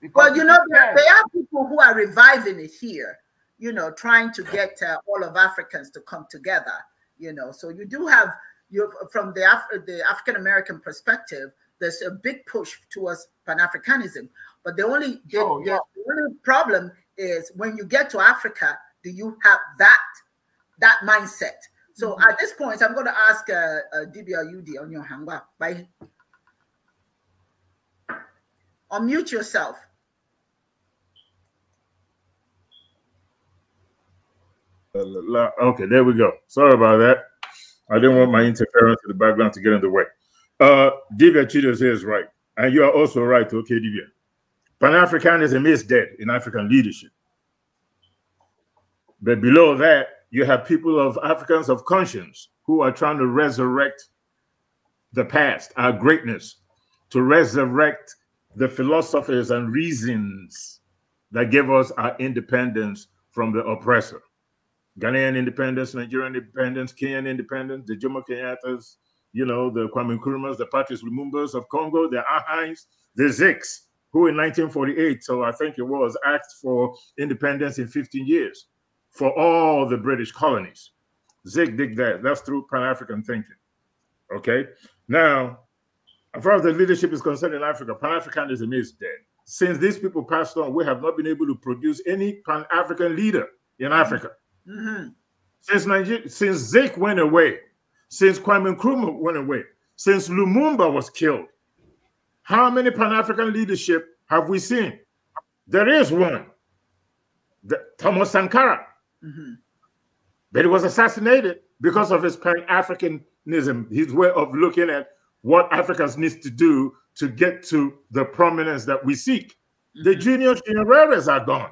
Because well, you know, there, there, are people who are reviving it here, you know, trying to get uh, all of Africans to come together you know so you do have you from the Af the African American perspective there's a big push towards pan-africanism but the only the, oh, yeah. the, the only problem is when you get to Africa do you have that that mindset so mm -hmm. at this point I'm going to ask uh, uh, DBLUD on your hangwa bye unmute yourself Okay, there we go. Sorry about that. I didn't want my interference in the background to get in the way. Uh, Divya Chidoze is right. And you are also right, okay, Divya. Pan-Africanism is dead in African leadership. But below that, you have people of Africans of conscience who are trying to resurrect the past, our greatness, to resurrect the philosophers and reasons that gave us our independence from the oppressor. Ghanaian independence, Nigerian independence, Kenyan independence, the Jomo Kenyattas, you know, the Kwame Nkrumahs, the Patrice Lumumbas of Congo, the Ahais, the Ziks, who in 1948, so I think it was, asked for independence in 15 years for all the British colonies. Zig dig that. That's through Pan African thinking. Okay. Now, as far as the leadership is concerned in Africa, Pan Africanism is dead. Since these people passed on, we have not been able to produce any Pan African leader in Africa. Mm-hmm. Since since Zik went away, since Kwame Nkrumah went away, since Lumumba was killed, how many Pan African leadership have we seen? There is one, the, Thomas Sankara, mm-hmm. but he was assassinated because of his Pan Africanism, his way of looking at what Africans needs to do to get to the prominence that we seek. Mm-hmm. The junior generales are gone.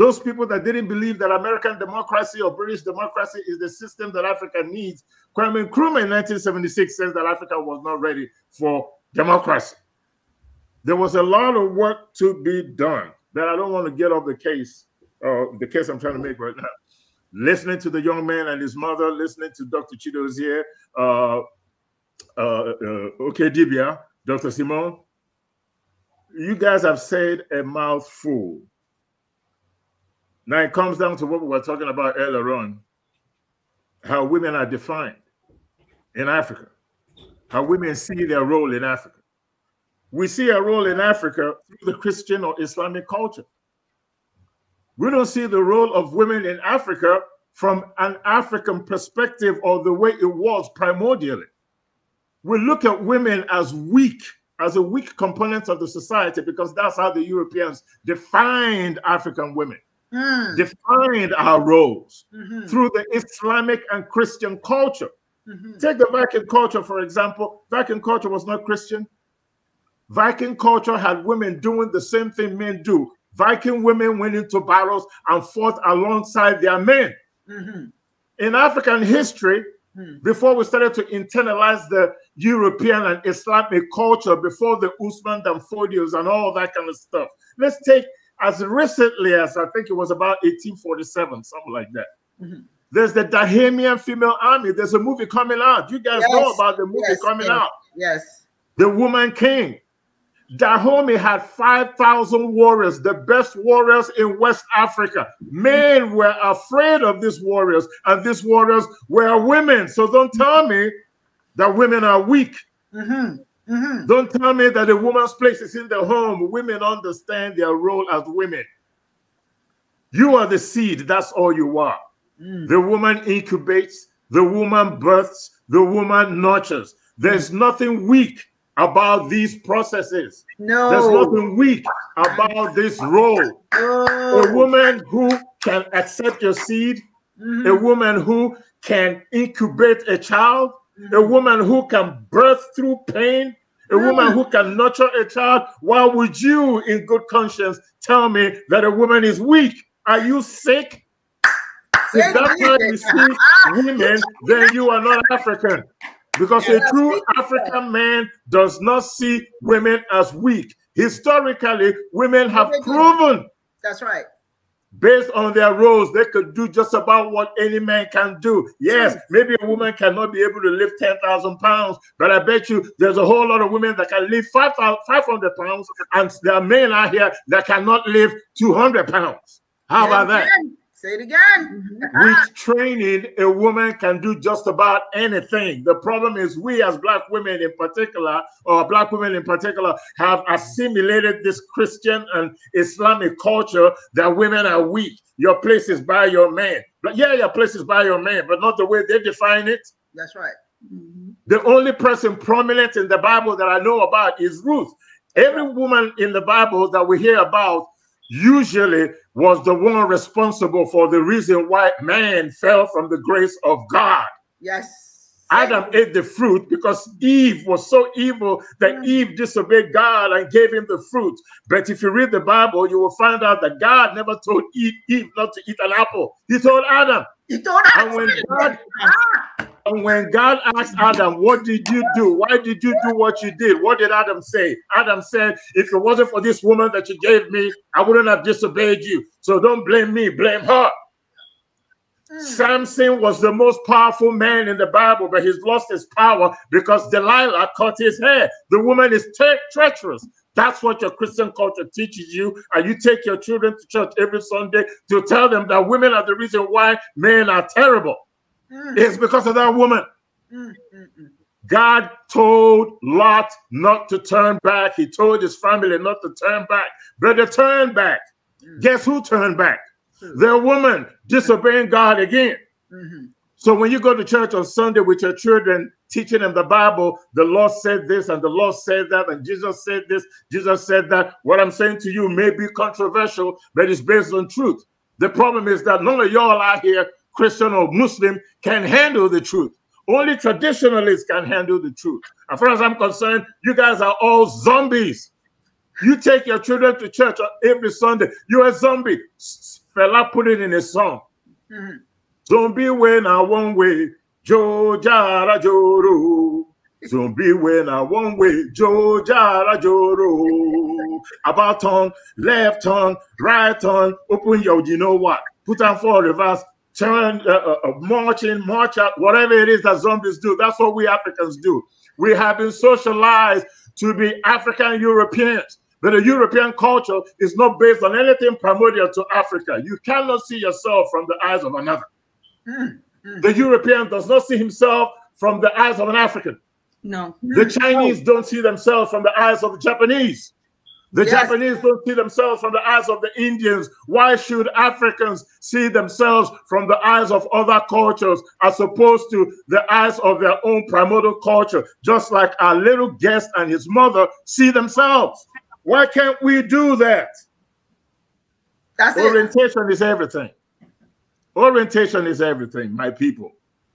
Those people that didn't believe that American democracy or British democracy is the system that Africa needs. Kwame Nkrumah in 1976 says that Africa was not ready for democracy. There was a lot of work to be done that I don't want to get off the case, uh, the case I'm trying to make right now. Listening to the young man and his mother, listening to Dr. Chidozie, uh, uh, uh, okay, Dibia, Dr. Simon, you guys have said a mouthful. Now it comes down to what we were talking about earlier on how women are defined in Africa, how women see their role in Africa. We see a role in Africa through the Christian or Islamic culture. We don't see the role of women in Africa from an African perspective or the way it was primordially. We look at women as weak, as a weak component of the society because that's how the Europeans defined African women mm. defined our roles -hmm. through the Islamic and Christian culture. Mm-hmm. Take the Viking culture, for example. Viking culture was not Christian. Viking culture had women doing the same thing men do. Viking women went into battles and fought alongside their men. Mm -hmm. In African history, mm -hmm. before we started to internalize the European and Islamic culture, before the Usman and Fodios and all that kind of stuff, let's take as recently as I think it was about 1847, something like that. Mm-hmm. There's the Dahamian Female Army. There's a movie coming out. You guys yes. know about the movie yes. coming yes. out. Yes. The Woman King. Dahomey had 5,000 warriors, the best warriors in West Africa. Men were afraid of these warriors, and these warriors were women. So don't tell me that women are weak. Mm-hmm. Mm-hmm. Don't tell me that a woman's place is in the home. Women understand their role as women. You are the seed, that's all you are. Mm. The woman incubates, the woman births, the woman nurtures. There's mm. nothing weak about these processes. No. There's nothing weak about this role. Oh. A woman who can accept your seed, mm-hmm. a woman who can incubate a child, mm-hmm. a woman who can birth through pain, a woman mm. who can nurture a child, why would you, in good conscience, tell me that a woman is weak? Are you sick? If that's how you see women, then you are not African. Because a true African man does not see women as weak. Historically, women have proven that's right. Based on their roles, they could do just about what any man can do. Yes, maybe a woman cannot be able to lift 10,000 pounds, but I bet you there's a whole lot of women that can lift 500 pounds, and there are men out here that cannot lift 200 pounds. How about that? Say it again. Mm-hmm. With training, a woman can do just about anything. The problem is, we as black women in particular, or black women in particular, have assimilated this Christian and Islamic culture that women are weak. Your place is by your man. But yeah, your place is by your man, but not the way they define it. That's right. Mm-hmm. The only person prominent in the Bible that I know about is Ruth. Every woman in the Bible that we hear about usually was the one responsible for the reason why man fell from the grace of God. Yes. Adam ate the fruit because Eve was so evil that mm. Eve disobeyed God and gave him the fruit. But if you read the Bible, you will find out that God never told Eve, Eve not to eat an apple. He told Adam. He told Adam. And when God, ah. And when God asked Adam, What did you do? Why did you do what you did? What did Adam say? Adam said, If it wasn't for this woman that you gave me, I wouldn't have disobeyed you. So don't blame me, blame her. Mm. Samson was the most powerful man in the Bible, but he's lost his power because Delilah cut his hair. The woman is tre treacherous. That's what your Christian culture teaches you. And you take your children to church every Sunday to tell them that women are the reason why men are terrible. Mm. It's because of that woman. Mm, mm, mm, God told Lot not to turn back. He told his family not to turn back. But they turned back. Mm. Guess who turned back? Their woman disobeying God again. -hmm. So when you go to church on Sunday with your children, teaching them the Bible, the Lord said this and the Lord said that, and Jesus said this, Jesus said that. What I'm saying to you may be controversial, but it's based on truth. The problem is that none of y'all out here Christian or Muslim, can handle the truth. Only traditionalists can handle the truth. As far as I'm concerned, you guys are all zombies. You take your children to church every Sunday. You're a zombie. Fella put it in a song. Mm-hmm. Zombie when I one way, Jo Jara Joro. Zombie when I one way, Jo Jara Joro. About tongue, left tongue, right tongue, Open your, you know what? Put on four reverse turn, uh, uh, uh, march in, march out, whatever it is that zombies do. That's what we Africans do. We have been socialized to be African Europeans. But the European culture is not based on anything primordial to Africa. You cannot see yourself from the eyes of another. Mm, mm. The European does not see himself from the eyes of an African. No. The Chinese no. don't see themselves from the eyes of the Japanese. The yes. Japanese don't see themselves from the eyes of the Indians. Why should Africans see themselves from the eyes of other cultures as opposed to the eyes of their own primordial culture, just like our little guest and his mother see themselves? Why can't we do that? That's Orientation it. is everything. Orientation is everything, my people.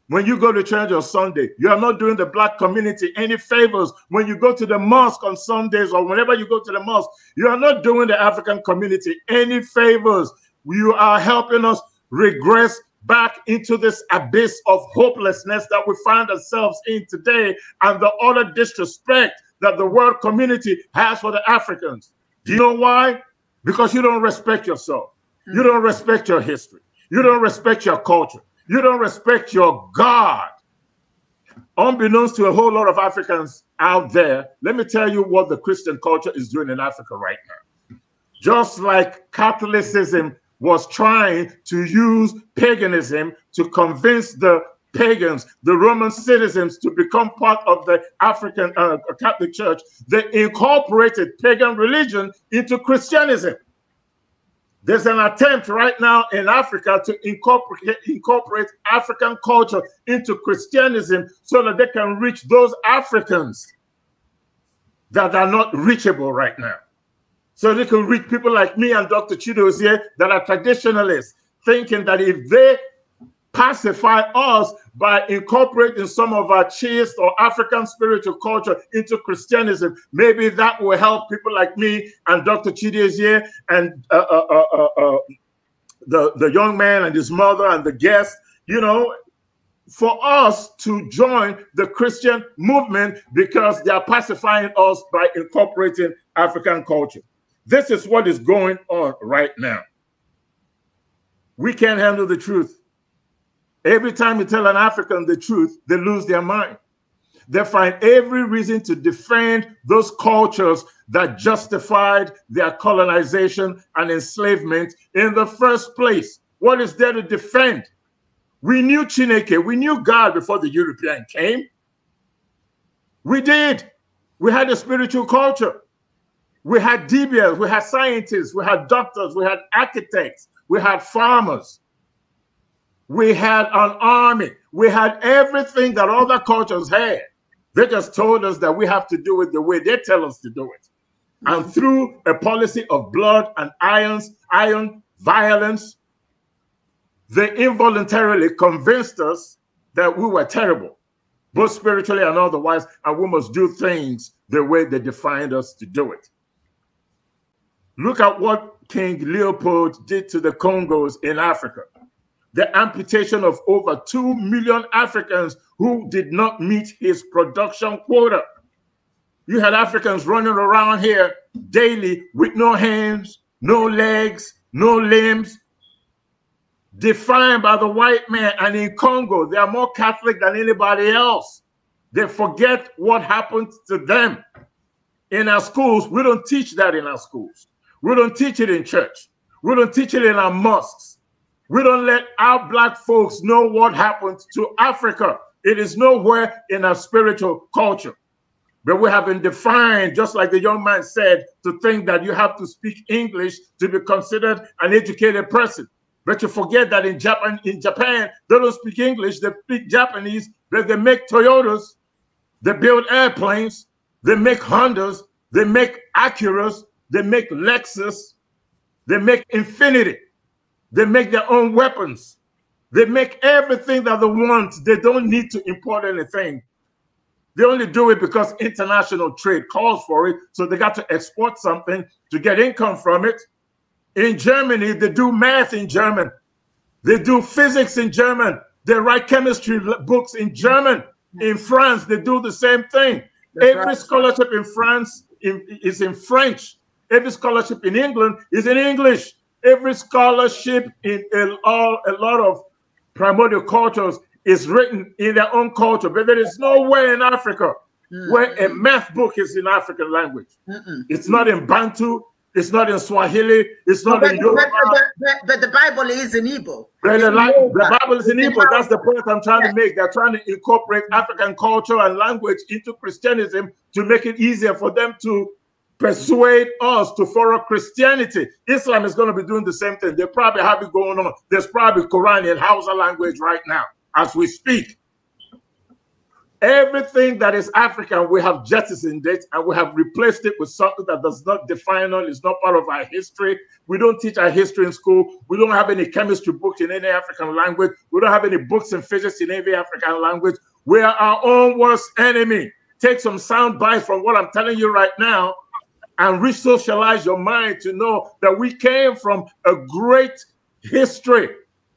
When you go to church on Sunday, you are not doing the black community any favors. When you go to the mosque on Sundays or whenever you go to the mosque, you are not doing the African community any favors. You are helping us regress back into this abyss of hopelessness that we find ourselves in today and the utter disrespect that the world community has for the Africans. Do you know why? Because you don't respect yourself. You mm. don't respect your history. You don't respect your culture. You don't respect your God. Unbeknownst to a whole lot of Africans out there, let me tell you what the Christian culture is doing in Africa right now. Just like Catholicism was trying to use paganism to convince the pagans, the Roman citizens, to become part of the African uh, Catholic Church, they incorporated pagan religion into Christianism. There's an attempt right now in Africa to incorporate, incorporate African culture into Christianism so that they can reach those Africans that are not reachable right now. So they can reach people like me and Dr. Chidozie that are traditionalists, thinking that if they pacify us by incorporating some of our chaste or African spiritual culture into Christianism. Maybe that will help people like me and Dr. Chidezie and uh uh, uh, uh, uh, the, the young man and his mother and the guest, you know, for us to join the Christian movement because they are pacifying us by incorporating African culture. This is what is going on right now. We can't handle the truth. Every time you tell an African the truth, they lose their mind. They find every reason to defend those cultures that justified their colonization and enslavement in the first place. What is there to defend? We knew Chineke, we knew God before the European came. We did. We had a spiritual culture. We had DBS, we had scientists, we had doctors, we had architects, we had farmers. We had an army. We had everything that other cultures had. They just told us that we have to do it the way they tell us to do it. And mm-hmm. through a policy of blood and irons, iron violence, they involuntarily convinced us that we were terrible, both spiritually and otherwise, and we must do things the way they defined us to do it. Look at what King Leopold did to the Congos in Africa the amputation of over 2 million Africans who did not meet his production quota. You had Africans running around here daily with no hands, no legs, no limbs, defined by the white man. And in Congo, they are more Catholic than anybody else. They forget what happened to them. In our schools, we don't teach that in our schools. We don't teach it in church. We don't teach it in our mosques. We don't let our black folks know what happened to Africa. It is nowhere in our spiritual culture. But we have been defined, just like the young man said, to think that you have to speak English to be considered an educated person. But you forget that in Japan, in Japan, they don't speak English, they speak Japanese, but they make Toyotas, they build airplanes, they make Hondas, they make Acuras, they make Lexus, they make Infinity. They make their own weapons. They make everything that they want. They don't need to import anything. They only do it because international trade calls for it. So they got to export something to get income from it. In Germany, they do math in German. They do physics in German. They write chemistry books in German. In France, they do the same thing. That's Every right. scholarship in France is in French. Every scholarship in England is in English. Every scholarship in a, all, a lot of primordial cultures is written in their own culture, but there is nowhere in Africa mm. where a math book is in African language. Mm-mm. It's not in Bantu. It's not in Swahili. It's not but, in Yoruba. But, but, but, the Bible is in Igbo. But the, the, Bible is in Igbo. That's the point I'm trying to make. They're trying to incorporate African culture and language into Christianism to make it easier for them to persuade us to follow Christianity. Islam is going to be doing the same thing. They probably have it going on. There's probably Quran in Hausa language right now as we speak. Everything that is African, we have jettisoned it and we have replaced it with something that does not define us, it's not part of our history. We don't teach our history in school. We don't have any chemistry books in any African language. We don't have any books in physics in any African language. We are our own worst enemy. Take some sound bites from what I'm telling you right now and resocialize your mind to know that we came from a great history.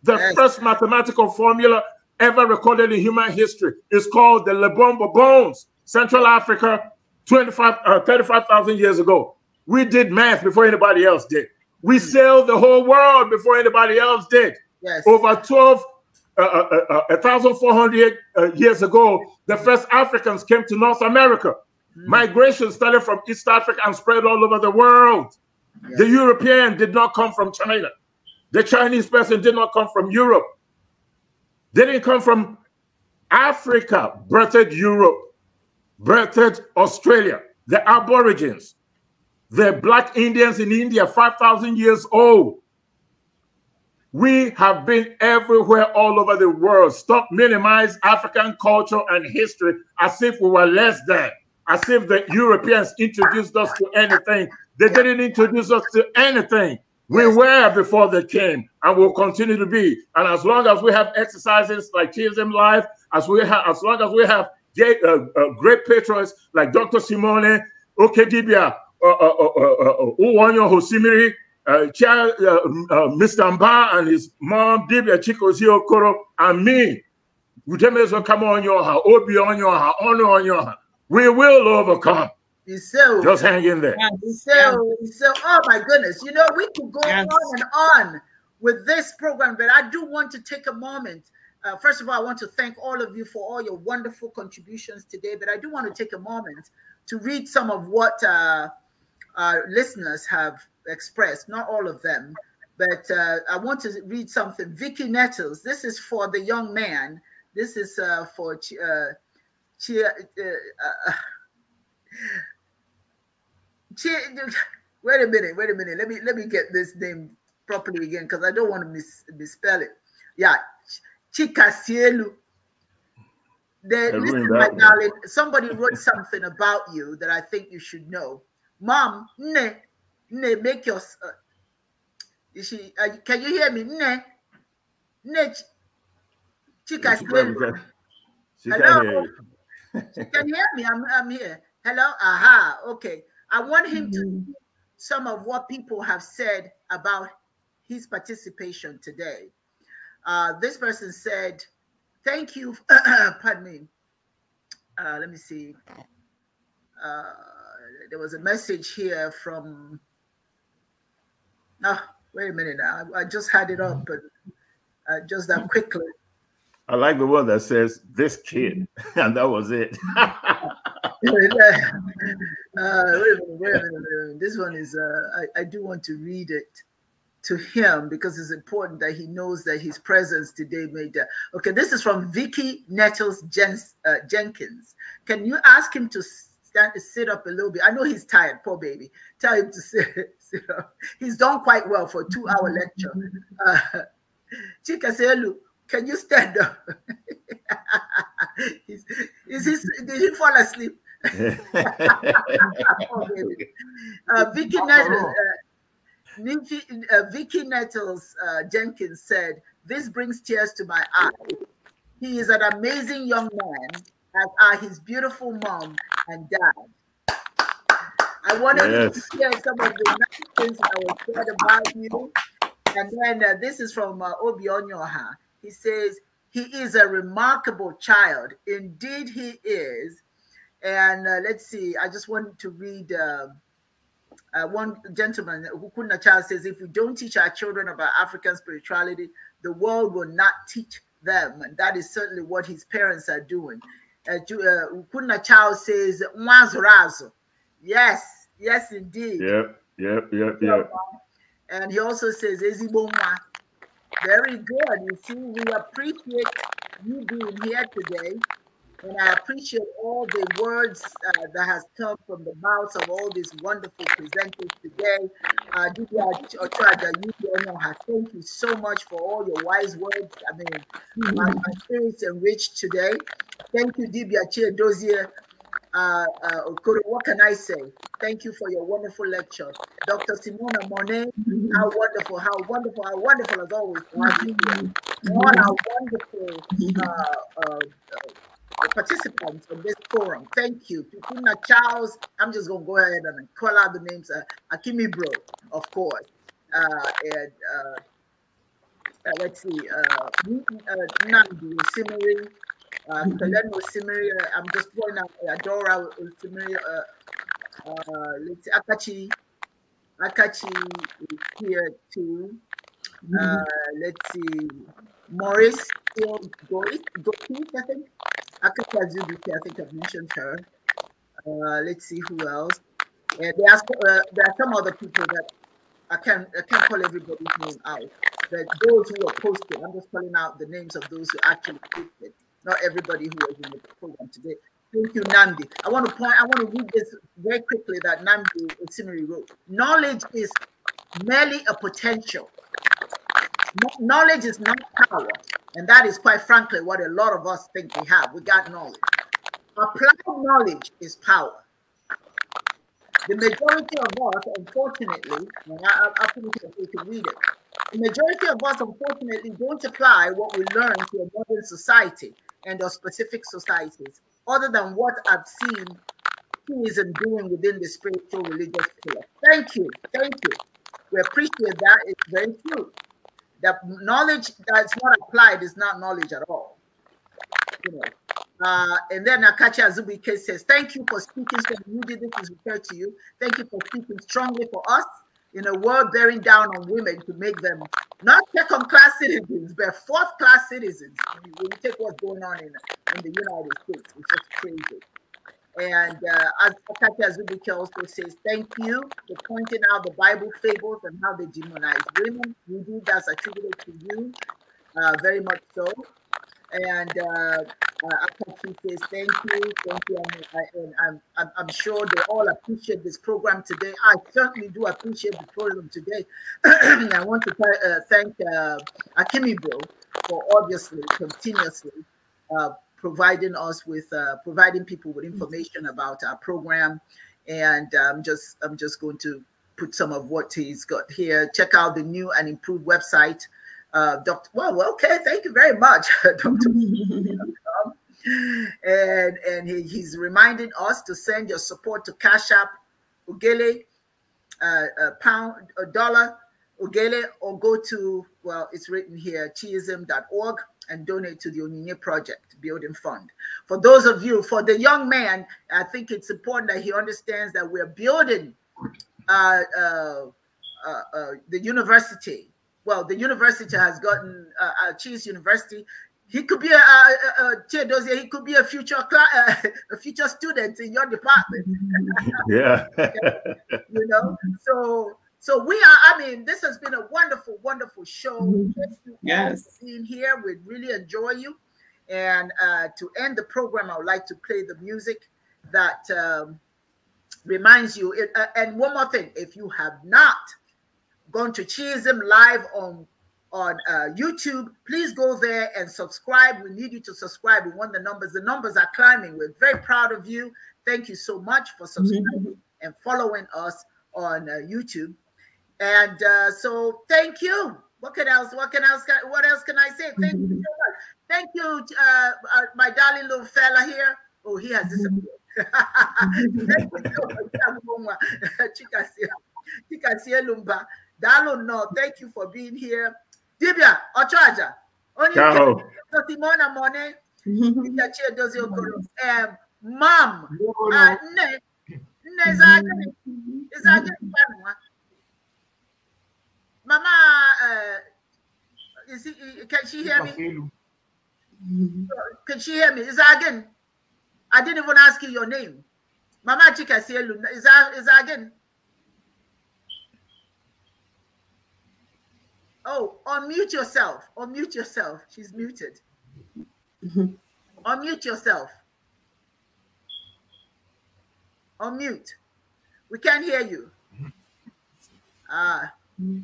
The yes. first mathematical formula ever recorded in human history is called the Lebombo Bones, Central Africa, 25, uh, 35,000 years ago. We did math before anybody else did. We hmm. sailed the whole world before anybody else did. Yes. Over 12, uh, uh, 1,400 uh, uh, uh, years ago, the first Africans came to North America. Mm. Migration started from East Africa and spread all over the world. Yeah. The European did not come from China. The Chinese person did not come from Europe. They didn't come from Africa, birthed Europe, birthed Australia, the Aborigines, the Black Indians in India, 5,000 years old. We have been everywhere all over the world. Stop minimize African culture and history as if we were less than as if the Europeans introduced us to anything. They didn't introduce us to anything. We were before they came and will continue to be. And as long as we have exercises like Chisholm Life, as we have, as long as we have great, uh, uh, great patrons like Dr. Simone, Okedibia, uh, uh, uh, Uwanyo Hosimiri, Mr. Mba and his mom, Dibia Chikozi Okoro, and me, Udemezo Kamonyoha, Obi Onyoha, Ono Onyoha, we will overcome. So, Just hang in there. So, so, oh my goodness. You know, we could go yes. on and on with this program, but I do want to take a moment. Uh, first of all, I want to thank all of you for all your wonderful contributions today, but I do want to take a moment to read some of what uh, our listeners have expressed, not all of them, but uh, I want to read something. Vicky Nettles, this is for the young man. This is uh, for uh, tinha, uh, uh, wait a minute, wait a minute. Let me let me get this name properly again because I don't want to mis- misspell it. Yeah, Chikasielu. Then listen, my one. darling, somebody wrote something about you that I think you should know. Mom, ne, ne, make your. Uh, you she, uh, can you hear me? Ne, ne, Chikasielu. Hello you can hear me. I'm, I'm here. Hello? Aha. Okay. I want him mm -hmm. to mm-hmm. some of what people have said about his participation today. Uh, this person said, Thank you. pardon me. Uh, let me see. Uh, there was a message here from. No, oh, ah, wait a minute. I, I just had it up, but uh, just that mm-hmm. quickly. I like the one that says this kid, mm-hmm. and that was it. uh, wait, wait, wait, this one is, uh, I, I, do want to read it to him because it's important that he knows that his presence today made that. Okay, this is from Vicky Nettles Jens, uh, Jenkins. Can you ask him to stand, sit up a little bit? I know he's tired, poor baby. Tell him to sit, sit up. He's done quite well for a two-hour lecture. Uh, can you stand up? is, is this, did he fall asleep? uh, Vicky, Nettles, uh, uh, uh, Jenkins said, This brings tears to my eyes. He is an amazing young man, as are his beautiful mom and dad. I wanted yes. to share some of the nice things I was said about you. And then uh, this is from uh, Obi Onyoha. He says, He is a remarkable child. Indeed, He is. And uh, let's see, I just want to read. Uh, uh, one gentleman, Hukuna Child, says, if we don't teach our children about African spirituality, the world will not teach them. And that is certainly what his parents are doing. Uh, uh Child says, Yes, yes, indeed. Yep, yep, yep, yep. And he also says, very good. You see, we appreciate you being here today, and I appreciate all the words uh, that has come from the mouths of all these wonderful presenters today. Uh, thank you so much for all your wise words. I mean, mm-hmm. my, experience enriched today. Thank you, Dibia Chia Dozier, uh, uh, what can I say? Thank you for your wonderful lecture. Dr. Simona Monet, how wonderful, how wonderful, how wonderful as always. Uh, what a wonderful uh, uh, uh participants of this forum. Thank you. Pipuna Charles, I'm just going to go ahead and call out the names. Uh, Akimi Bro, of course. and, let's see, uh, Nandu Simmery, uh, Kelen Osimiri, I'm just pointing out Adora Osimiri, uh, let's Akachi, Akachi is here too. Mm-hmm. Uh, let's see, Morris still I think. Akachi Azubuki, I think I've mentioned her. Uh, let's see who else. Uh, there, are, uh, there are some other people that I can't I can't call everybody's name out, but those who are posted, I'm just calling out the names of those who actually posted not everybody who was in the program today. Thank you, Nandi. I want to point, I want to read this very quickly that Nandi Osinri wrote. Knowledge is merely a potential. Knowledge is not power. And that is quite frankly what a lot of us think we have. We got knowledge. Applied knowledge is power. The majority of us, unfortunately, and I, I think we can read it, the majority of us, unfortunately, don't apply what we learn to a modern society and of specific societies, other than what I've seen who isn't doing within the spiritual religious pillar. Thank you. Thank you. We appreciate that. It's very true. That knowledge that's not applied is not knowledge at all. You know. Uh, and then Akachi K says, Thank you for speaking. So you did this is referred to you. Thank you for speaking strongly for us in a world bearing down on women to make them not second class citizens, but fourth class citizens. When you, take what's going on in, in the United States, it's just crazy. And uh, as Katia Zubike also says, thank you for pointing out the Bible fables and how they demonize women. We do that's attributed to you, uh, very much so. And uh, uh, says thank you, thank you, and, uh, and I'm, I'm sure they all appreciate this program today. I certainly do appreciate the program today. I want to uh, thank uh, Akimi Bro for obviously continuously uh, providing us with uh, providing people with information about our program and i'm um, just i'm just going to put some of what he's got here check out the new and improved website uh, Dr. Well, okay, thank you very much, Dr. and and he, he's reminding us to send your support to Cash App, Ugele, uh, a uh, pound, a uh, dollar, Ugele, or go to, well, it's written here, chiism.org and donate to the Onyinye Project Building Fund. For those of you, for the young man, I think it's important that he understands that we're building uh, uh, the university well, the university has gotten uh, uh Cheese University. He could be a, a, a He could be a future a future student in your department. yeah, you know. So, so we are. I mean, this has been a wonderful, wonderful show. Mm-hmm. yes, being here, we really enjoy you. And uh, to end the program, I would like to play the music that um, reminds you. It, uh, and one more thing, if you have not gone to him live on on uh, YouTube. Please go there and subscribe. We need you to subscribe. We want the numbers. The numbers are climbing. We're very proud of you. Thank you so much for subscribing mm-hmm. and following us on uh, YouTube. And uh, so, thank you. What can else? What can else? What else can I say? Thank you so much. Thank you, uh, uh, my darling little fella here. Oh, he has disappeared. thank you Dalo, no, thank you for being here. Dibia, Ochaja, only Simona Mone, Dibia Chia Dozi Okoro, Mom, Ne, Nezaje, Nezaje, Mama, uh, is he, can she hear me? Can she hear me? Is that again? I didn't even ask you your name. Mama Chika Sielu, is that, is that again? Oh, unmute yourself. Unmute yourself. She's muted. unmute yourself. Unmute. We can't hear you. Ah. Uh,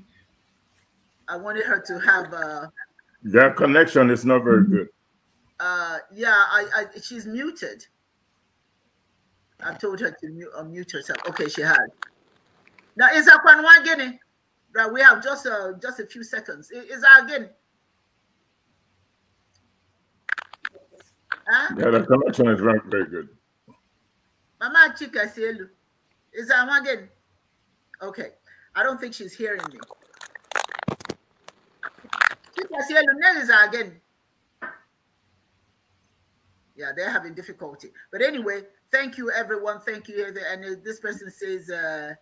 I wanted her to have a. Uh, Their connection is not very good. Uh, yeah, I, I she's muted. I told her to mute, unmute herself. Okay, she had. Now, is that one Guinea? Right, we have just uh, just a few seconds. Is that again? Huh? Yeah, the connection is very, very good. Mama Chika Selu. Is that again? Okay. I don't think she's hearing me. Chika is that again. Yeah, they're having difficulty. But anyway, thank you, everyone. Thank you. And this person says, uh,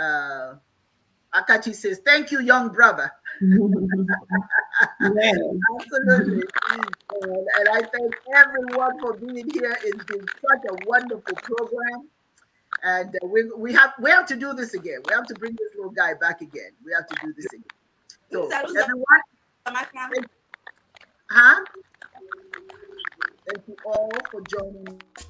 uh, Akachi says, thank you, young brother. Absolutely. And I thank everyone for being here. It's been such a wonderful program. And uh, we, we have we have to do this again. We have to bring this little guy back again. We have to do this again. So everyone, huh? Thank you all for joining.